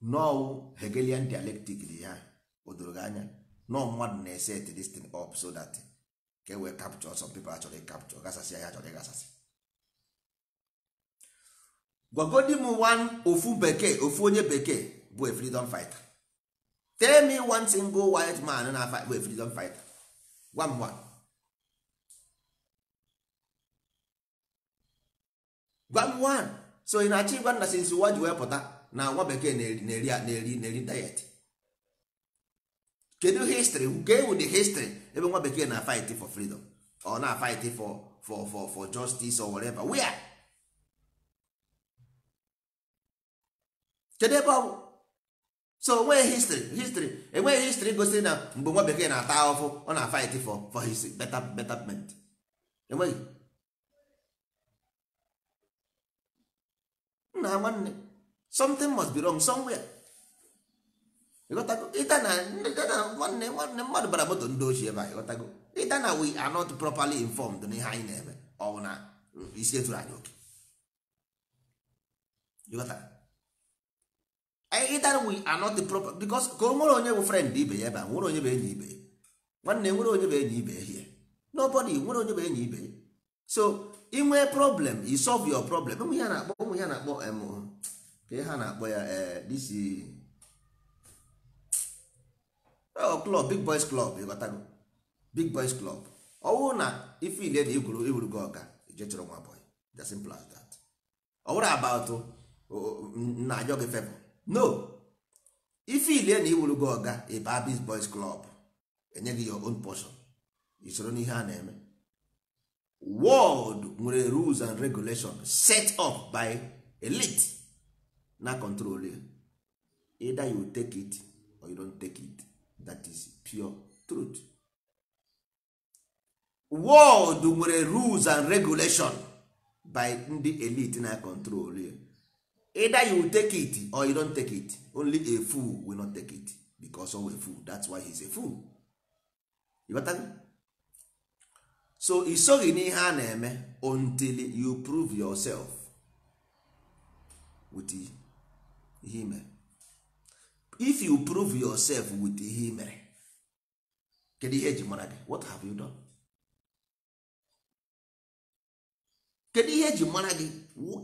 nọọ hegelian dialectic dị ya o doro gị anya nọọ mmadụ na-eset this thing up so dat ka e wee capture some people achọrọ capture gasasị ya achọrọ ịgasasị gwagodi m one ofu bekee ofu onye bekee bụ a freedom fighter tell me one single white man na fight bụ a freedom fighter gwa m one gwa m one so ị na-achọ ịgwa nna sinsi nwa ji wee pụta na nwa bekee na-eri na-eri na-eri diet kedu histrị nke wu the history ebe nwa bekee na fight for freedom or na fight for for for for justice or whatever where kedu ebe ọ bụ so onweghị history histrị enweghị histrị gosiri na uh, mgbe nwa bekee na-ata ahụhụ ọ na fight for for his better betterment enweghị nna nwanne something must be wrong somewhere ịghọtago ịta na nwanne nwanne mmadụ bara moto ndị ochie ebe a ịghọtago ịta na we are not properly informed n'ihe anyị na-eme oh, ọ bụ na isi etụrụ anyị oke ịta na we are not proper because ka o nwere onye bụ friend ibe ya ebe a nwere onye bụ enyi ibe nwanne nwere onye bụ enyi ibe ya nobody nwere onye bụ enyi ibe so inwee problem i solve your problem ụmụ ya na-akpọ ụmụ ya na-akpọ ka ha na-akpọ ya eh, this oh, club big boys club ịghọtago big boys club ọ bụrụ na ife ile na igwuru igwuru gị ọga je chọrọ nwa boy the simple as that ọ bụrụ about na ajọ gị febụ no ife ile na iwuru gị ọga ịba big boys club enye gị your own portion isoro n'ihe a na-eme world nwere rules and regulation set up by elite na control either you take it or you don't take it that is pure truth world nwere rules and regulation by ndị elite na control either you take it or you don't take it only a fool will not take it because of a fool that's why he's a fool. You so ị n'ihe a na-eme until you prove yourself with ihe imere if you prove yourself with ihe mere kedu ihe eji mara gị what have you done kedu ihe eji mara gị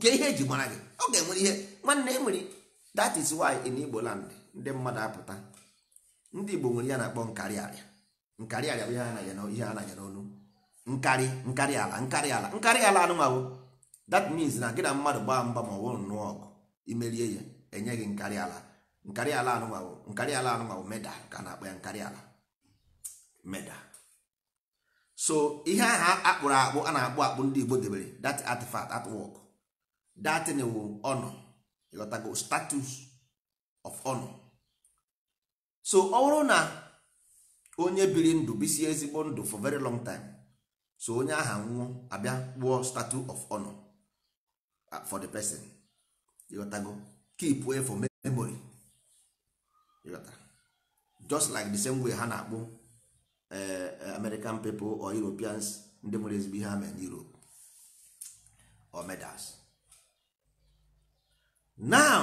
ke ihe eji mara gị ọ ga-enwere ihe nwanne enwere that is why in Igbo land ndị mmadụ apụta ndị Igbo nwere ya na-akpọ nkarịarịa nkarịarịa bụ ihe a na-anya n'olu nkarị nkarị ala nkarị ala nkarị ala anụmanụ that means na gị na mmadụ gbaa mgba ma ọ bụrụ nnọọ ọgụ imerie ya enye gị nkarị ala nkarị ala anụmanụ nkarị ala anụmanụ meda ka na-akpọ ya nkarị ala meda so ihe ahụ akpụrụ akpụ a na-akpụ akpụ ndị Igbo debere that artifact artwork that wụ honor ịghọtago status of honor so ọ bụrụ na onye biri ndụ bisie ezigbo ndụ for very long time so onye aha nwụọ abịa kpụọ statue of honor uh, for the person ịghọtago keep way for memory ịghọta just like the same way ha na-akpụ uh, uh, American people or Europeans ndị nwere ezigbo ihe ha n'Europe or medals now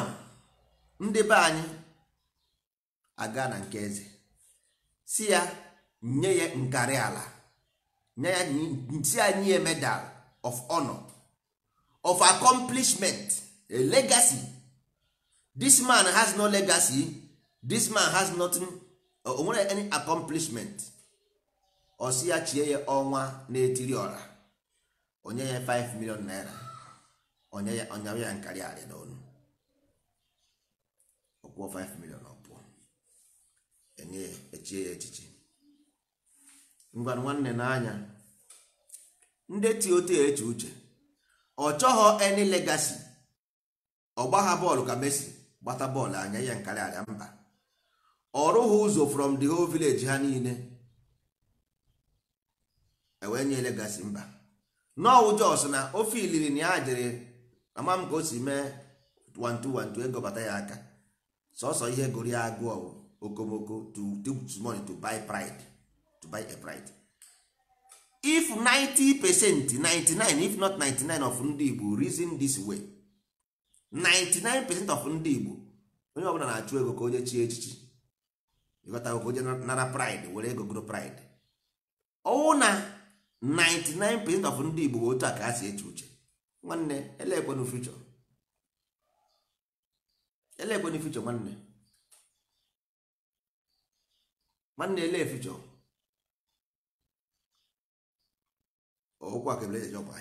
ndị be anyị aga na nke eze si ya nye ya nkarị ala nye ya nti anyị a medal of honor of accomplishment a legacy this man has no legacy this man has nothing o nwere any accomplishment ọ si ya chie ya ọnwa na-etiri ọra onye ya 5 million naira onye ya onye ya na arị n'ọnụ ọkwụọ 5 million ọpụọ enye ya echie ya echiche. ngwanụ nwanne n'anya ndị tiote eche uche ọ chọghọ eni legasi ọgbagha bọọlụ ka Messi gbata bọọlụ anya ya nkarị arịa mba ọ rụghị ụzọ from the whole village ha niile ewee nye legasi mba nọọwụ jos na ofe iliri na ya jiri ama m ka o si mee 1212 egobata ya aka sọsọ ihe goro ya okomoko to take money to buy pride buy a bride if 90 percent 99 if not 99 of ndị Igbo reason this way 99 percent of ndị Igbo onye ọbụla na-achụ ego ka onye chie echichi ịghọtago ka onye nara pride were ego goro pride ọwụ na 99 percent of ndị Igbo bụ otu a ka ha si eche uche nwanne elekwenu future elekwenu future nwanne nwanne ele future ọụkwa ka ebere eji ahịa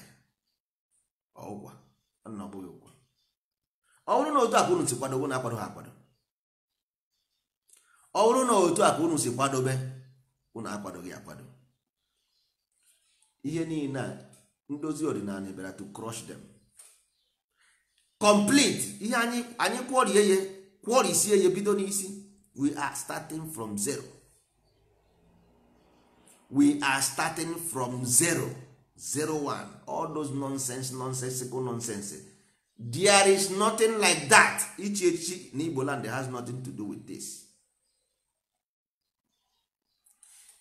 ya ọụkwa na ọbụghị bụghị ụkwa ọ bụrụ na otu akụ unu si kwadobe na akwado ha akwado ọ bụrụ na otu akụ unu si kwadobe unu akwadoghị akwado ihe niile a ndozi ọdịnala ebere to crush them complete ihe anyị anyị kwọrie ya kwọrisie ya bido n'isi we are starting from zero we are starting from zero zero one all those nonsense nonsensical nonsense there is nothing like that ichi echichi na igbo land has nothing to do with this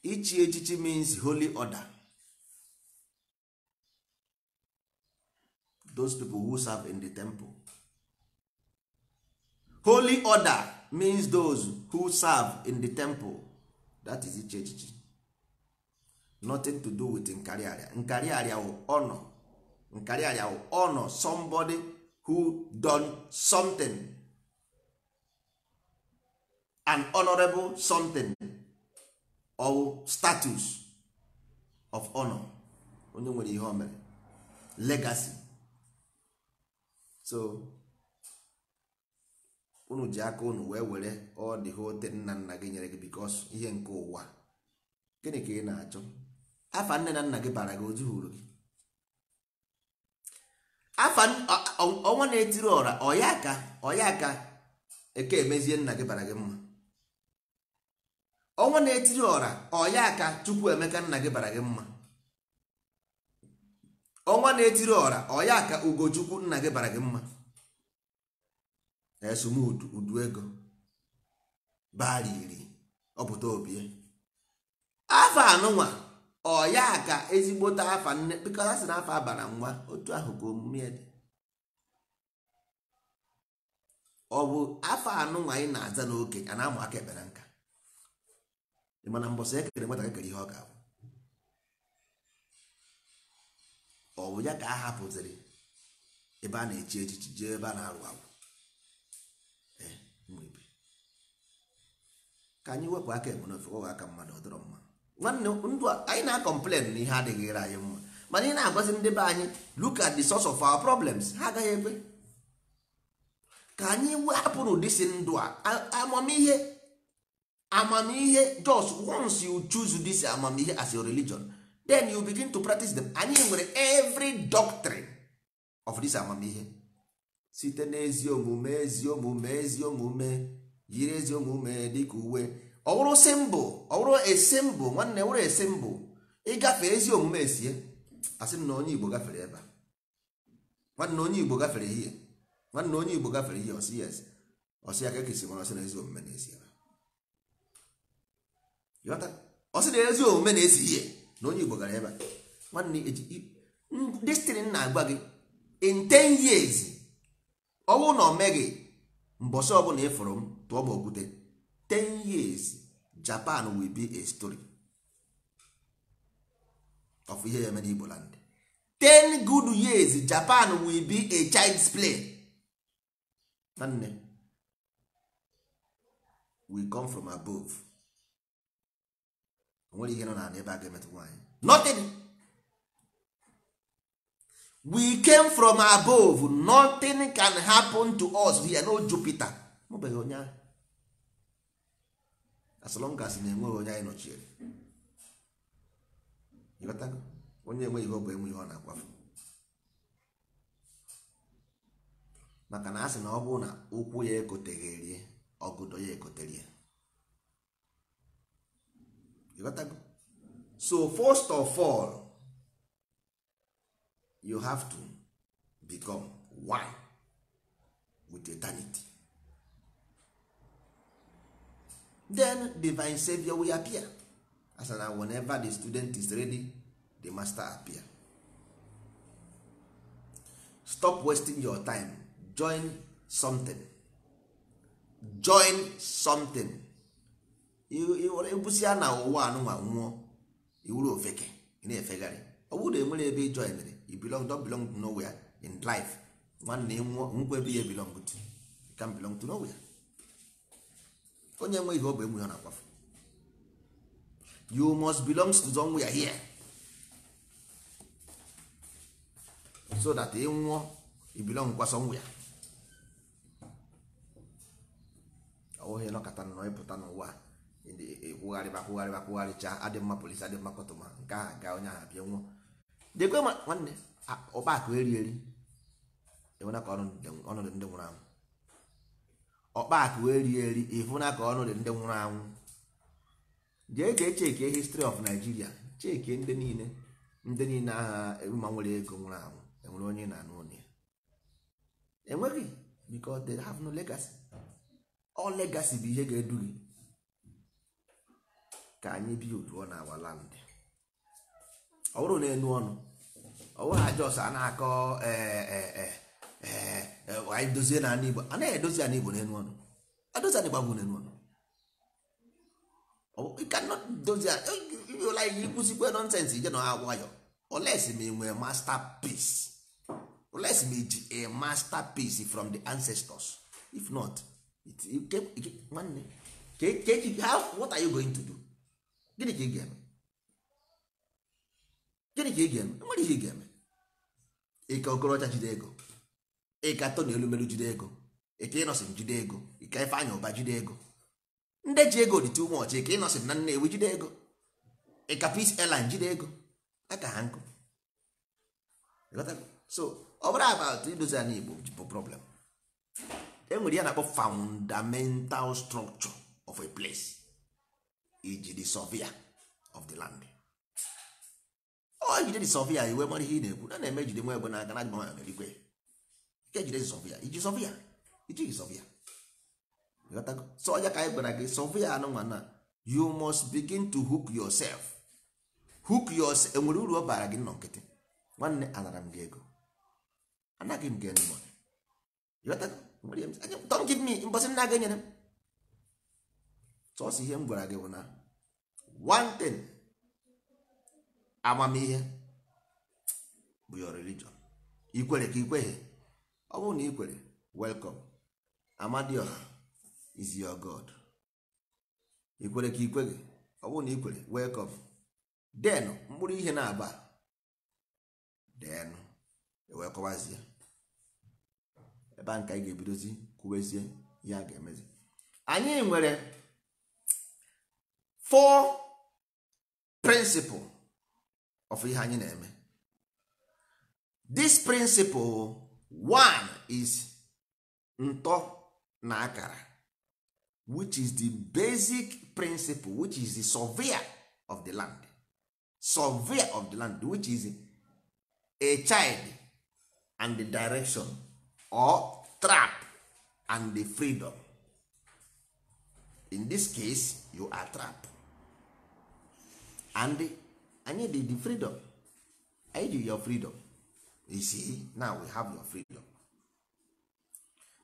ichi echichi means holy order those people who serve in the temple holy order means those who serve in the temple that is ichi echichi nothing to do with Nkari nkarịarịa wụ ọnọ nkarịarịa wụ ọnọ somebody who done something an honorable something or status of honor onye nwere ihe o mere legacy so unu ji aka unu wee were ọ dị hote nna nna gị nyere gị because ihe nke ụwa gịnị ka ị na-achọ afa nne na nna gị bara gị ozu hụrụ gị afa ọnwa na-etiri ọra ọya aka ọya aka eke emezie nna gị bara gị mma ọnwa na-etiri ọra ọya ka chukwu emeka nna gị bara gị mma ọnwa na-etiri ọra ọya ka ugochukwu nna gị bara gị mma na udu ego bariri ọpụta obie afọ anụnwa ọ ka ezigbote afa nne bikọta sị na afa abara nwa otu ahụ ka omume dị ọ bụ afọ anụ nwa anyị na-aza n'oke a na-amụ aka ekpere nka mana e kere nwata kekere ihe ọ ga abụ ọ bụ ya ka a hapụziri ebe a na-echi echichi jee ebe a na-arụ agwụ ka anyị wepụ aka ebe n'ofe ọ aka mmadụ ọ dọrọ nwanne ndụ anyị na-akọmplen na ihe adịghịra anyị mma mana ị na-agwazi ndị be anyị look at the source of our problems ha agaghị ekwe ka anyị wepụrụ dịsi ndụ a amamihe amamihe just once you choose this amamihe as your religion then you begin to practice them anyị nwere every doctrine of this amamihe site n'ezi omume ezi omume ezi omume yiri ezi omume dịka uwe ọwụrụ simbụ ọwụrụ esimbụ nwanne wụrụ esimbụ ịgafe ezi omume esie asị m na onye igbo gafere ebe a nwanne onye igbo gafere ihe nwanne onye igbo gafere ihe ọsị yes ọsị ya ka ekesi mara ọsị na ezi omume na-esi ebe ọsị na ezi omume na-esi ihe na onye igbo gara ebe a nwanne eji destin na-agwa gị in 10 years ọnwụ na omeghị mbọsị ọbụla ịfụrụ m tụọ m okwute 10 years japan will be a story of ihe ya mere igbo land ten good years japan will be a child's play nwanne we come from above onwere ihe nọ na ebe a ga-emetụ nothing we came from above nothing can happen to us here no jupiter mụbeghị onye ahụ asọlọngas na-enweghị onye anyị nọchiere ịghọtago onye enweghị ihe ọ bụ ihe ọ na-akwafu maka na asị na ọ bụrụ na ụkwụ ya ekotegheri ọgụdọ ya ekotere ya ịghọtago so first of all you have to become one with eternity then divine savior will appear as na whenever the student is ready the master appear stop wasting your time join something join something ebusia na ụwa anụnwa nwụọ iwuru ofeke na-efegharị ọ bụrụ na enwere ebe join you belong don belong to nowhere in life nwanne nwụọ nkwa ebe ya belong to you can belong to nowhere onye nwe ihe ọ bụ enwe ha na-akwafu you must belong to somewhere here so that ị nwụọ ị belong kwa somewhere ọwụghị nọkọta nọ ịpụta n'ụwa kwụgharị akwụgharị akwụgharịcha adị mma polisi adị mma kọtụma nke ahụ ga onye ahụ bịa nwụọ dekwe nwanne ọkpa akụ eri eri enwena ka ọnọdụ ndị nwụrụ anwụ ọkpakụ eri eri na ka ọnụ dị ndị nwụrụ anwụ jee jee chekie histri of naijiria chekie ndị niile ndị niile agha ma nwere ego nwụrụ anwụ enwere onye na-anụ ụlọ enweghị because they have no legacy ọ legacy bụ ihe ga-edu gị ka anyị bi uduo na our land ọ bụrụ na enu ọnụ ọ bụrụ na ajọs a na-akọ ee eh, eh, eh, anyị eh, eh, dozie na igbo a naghị edozi ana igbo n'elu ọnụ adozi ana igbo n'elu ọnụ doziụla eh, ihe ikwụzikwe nọnsensị ije na ha nwayọ olesi ma nwee masterpiece olesi ma iji a masterpiece from the ancestors if not nwanne what are you going to do gịnị ka ị ga-eme gịnị ka ị ga-eme nwere ihe ị ga-eme ike okorocha jide ego ịkatọ na elumelu jide ego ike ịnọsịn jide ego ike ifeanyị ụba jide ego ndị ji ego dị too much ike ịnọsịn na nnewi jide ego ịka peace airline jide ego aka ha nkụ so ọbụrụ bụrụ about idozi anyị igbo bụ problem enwere ya na-akpọ fundamental structure of a place iji the surveyor of the land ọ jide the surveyor iwe mara ihe ị na-ekwu na na-eme jide nwa egbe n'aka na agba na ya merikwe ike jide sọvịa iji sọvịa ijighị sọvịa so onye ka anyị gwara gị sọvịa anụnwa na you must begin to hook yourself hook yourself enwere uru ọ bara gị nọ nkịtị nwanne anara m gị ego anaghị m gị enyi don't give me mbọsị m na-aga enyere m sọsọ ihe m gwara gị bụ na one thing amamihe bụ your religion ikwere ka ikweghị ọ bụrụ na ị kwere welkom amadioha is your god ị kwere ka ị kweghị ọ bụrụ na ị kwere welkom den mkpụrụ ihe na-aba den e wee kọwazie ebe a nke anyị ga-ebidozi kwuwezie ihe a ga-emezi anyị nwere four principle of ihe anyị na-eme this principle one is ntọ na akara which is the basic principle which is the surveyor of the land surveyor of the land which is a child and the direction or trap and the freedom in this case you are trap and anyị dị the freedom I do your freedom you see now we have your freedom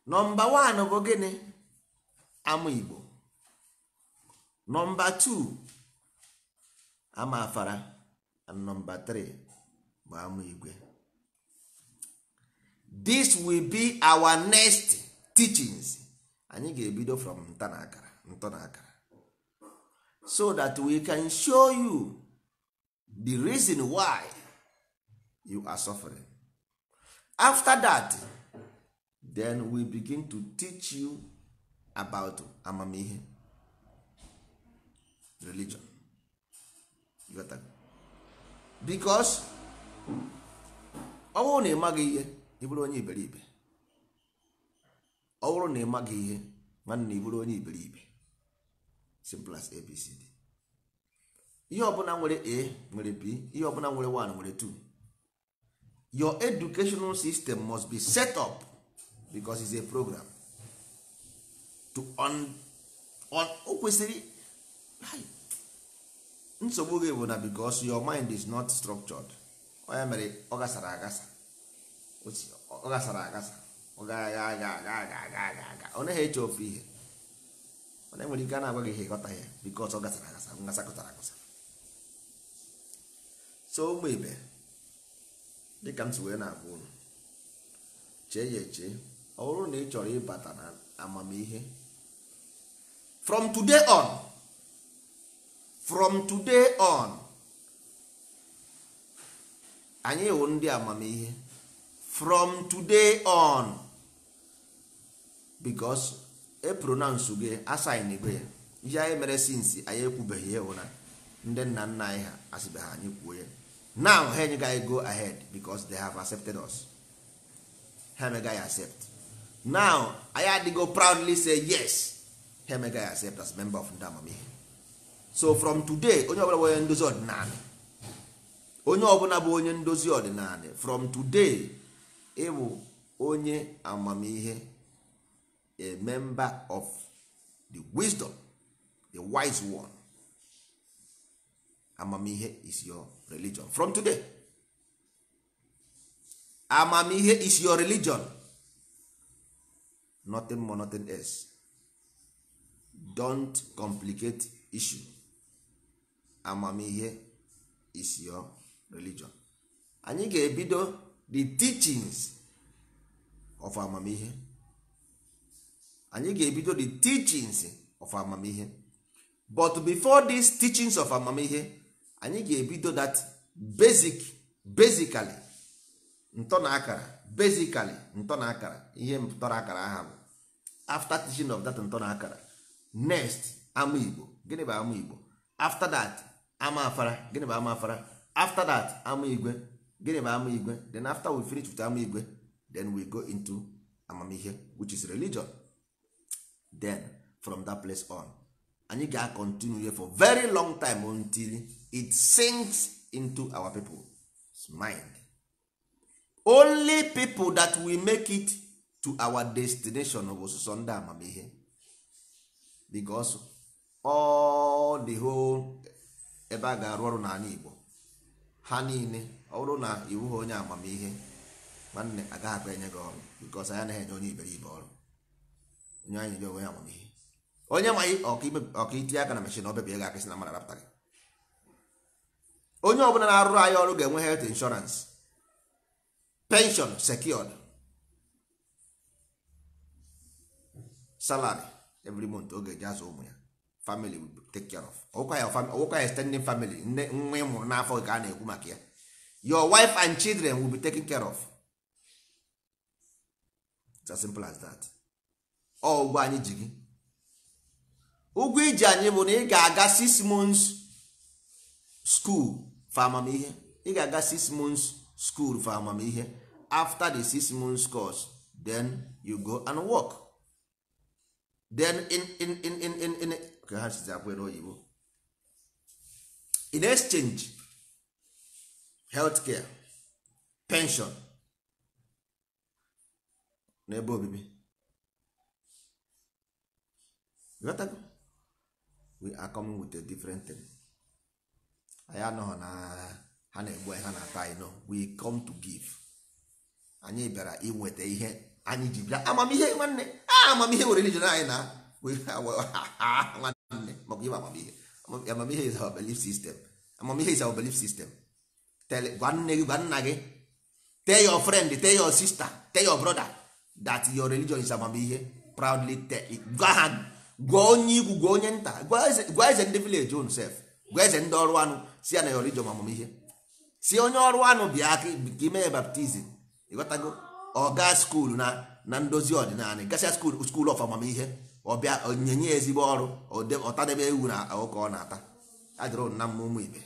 nọmba one bụ gịnị ama igbo nọmba two ama afara and nọmba three bụ ama igwe this will be our next teachings anyị ga-ebido from nta ntọ na akara so that we can show you the reason why you are suffering after that then we begin to teach you about amamihe religion got that? because ọ bụrụ na ịmaghị ihe ịbụrụ onye iberibe ọ bụrụ na ịmaghị ihe nwanne ịbụrụ onye iberibe simple as abcd ihe ọbụla nwere a nwere b ihe ọbụla nwere 1 nwere 2 your educational system must be set up because it's a program to on on o kwesịrị nsogbu gị bụ na because your mind is not structured onye mere ọ gasara agasa ọ gasara agasa ọ gaghị aga aga aga aga aga aga ọ naghị eche ofe ihe ọ na-enwere ike a na-agwa gị ihe ịghọta ya because ọ gasara agasa ngasakọtara agasa so ụmụ ibe dịka m si wee na-agwa ụlọ chee ya eche ọ bụrụ na ị chọrọ ịbata na amamihe from today on from today on anyị wụ ndị amamihe from today on because e pronounce gị asin ya ihe anyị mere since anyị ekwubeghị ya na ndị nna nna anyị ha asịbeghị anyị kwuo ya now ha enyegaghị go ahead because they have accepted us ha emegaghị accept now anyị adịgo proudly say yes ha emegaghị accept as member of ndị amamihe so from today onye ọbụla bụ onye ndozi ọdịnala onye ọbụla bụ onye ndozi ọdịnala from today ịbụ onye amamihe a member of the wisdom the wise one amamihe is your religion from today amamihe is your religion nothing more nothing else don't complicate issue amamihe is your religion anyị ga-ebido the teachings of amamihe anyị ga-ebido the teachings of amamihe but before these teachings of amamihe anyị ga-ebido that basic basically ntọ na akara basically ntọ na akara ihe ntọrọ akara aha bụ after teaching of that ntọ na akara next ama igbo gịnị bụ ama igbo after that ama afara gịnị bụ ama afara after that ama igwe gịnị bụ ama igwe then after we finish with ama igwe then we go into amamihe which is religion then from that place on anyị here for very long time until it sinks into our people's mind only people that we make it to our destination bụ sọsọ ndị amamihe because all the whole ebe a ga-arụ ọrụ n'ala Igbo ha niile ọrụ na iwu ha onye amamihe nwanne agaghị akpa enye gị ọrụ because anyị anaghị enye onye iberibe ọrụ onye anyị enye onye amamihe onye ma ọka itinye aka na mashin ọbịbịa ga akịsị na mmadụ arapụta gị onye ọbụla na-arụrụ anyị ọrụ ga-enwe health insurance pension secured salary every month oge eji azụ ụmụ ya family will take care of ọwụkwa ya extending family nne nwa ị n'afọ ka a na-ekwu maka ya your wife and children will be taken care of it's as simple as that ọ ụgwọ anyị ji gị ụgwọ iji anyị bụ na ị ga-aga six months school for amamihe ị ga-aga six months school for amamihe after the six months course then you go and work then in in in in in in ka ha sizi akwụ oyibo in exchange healthcare pension na ebe obibi we are coming with a different thing. anyị anọghị na ha na-egbu ha na-ata anyị no we come to give anyị bịara inweta ihe anyị ji bịa amamihe nwanne amamihe were religion anyị na [laughs] nwanne maka ịma amamihe amamihe is our belief system amamihe is our belief system gwa nne gị gwa nna gị tell your friend tell your sister tell your brother that your religion is amamihe proudly tell gwa ha gwa onye ikwu gwa onye nta gwa eze ndị village own self gwa eze ndị ọrụ anụ si ya na ịghọrọ ijom ihe si onye ọrụ anụ bịa aka ka ime ya baptizim ịghọtago ọga skuul na na ndozi ọdịnala gasịa skuul skuul of amamihe ọbịa onyenye ezigbo ọrụ ọtadebe ewu na ụka ọ na-ata adịrọ na mma ụmụ ibe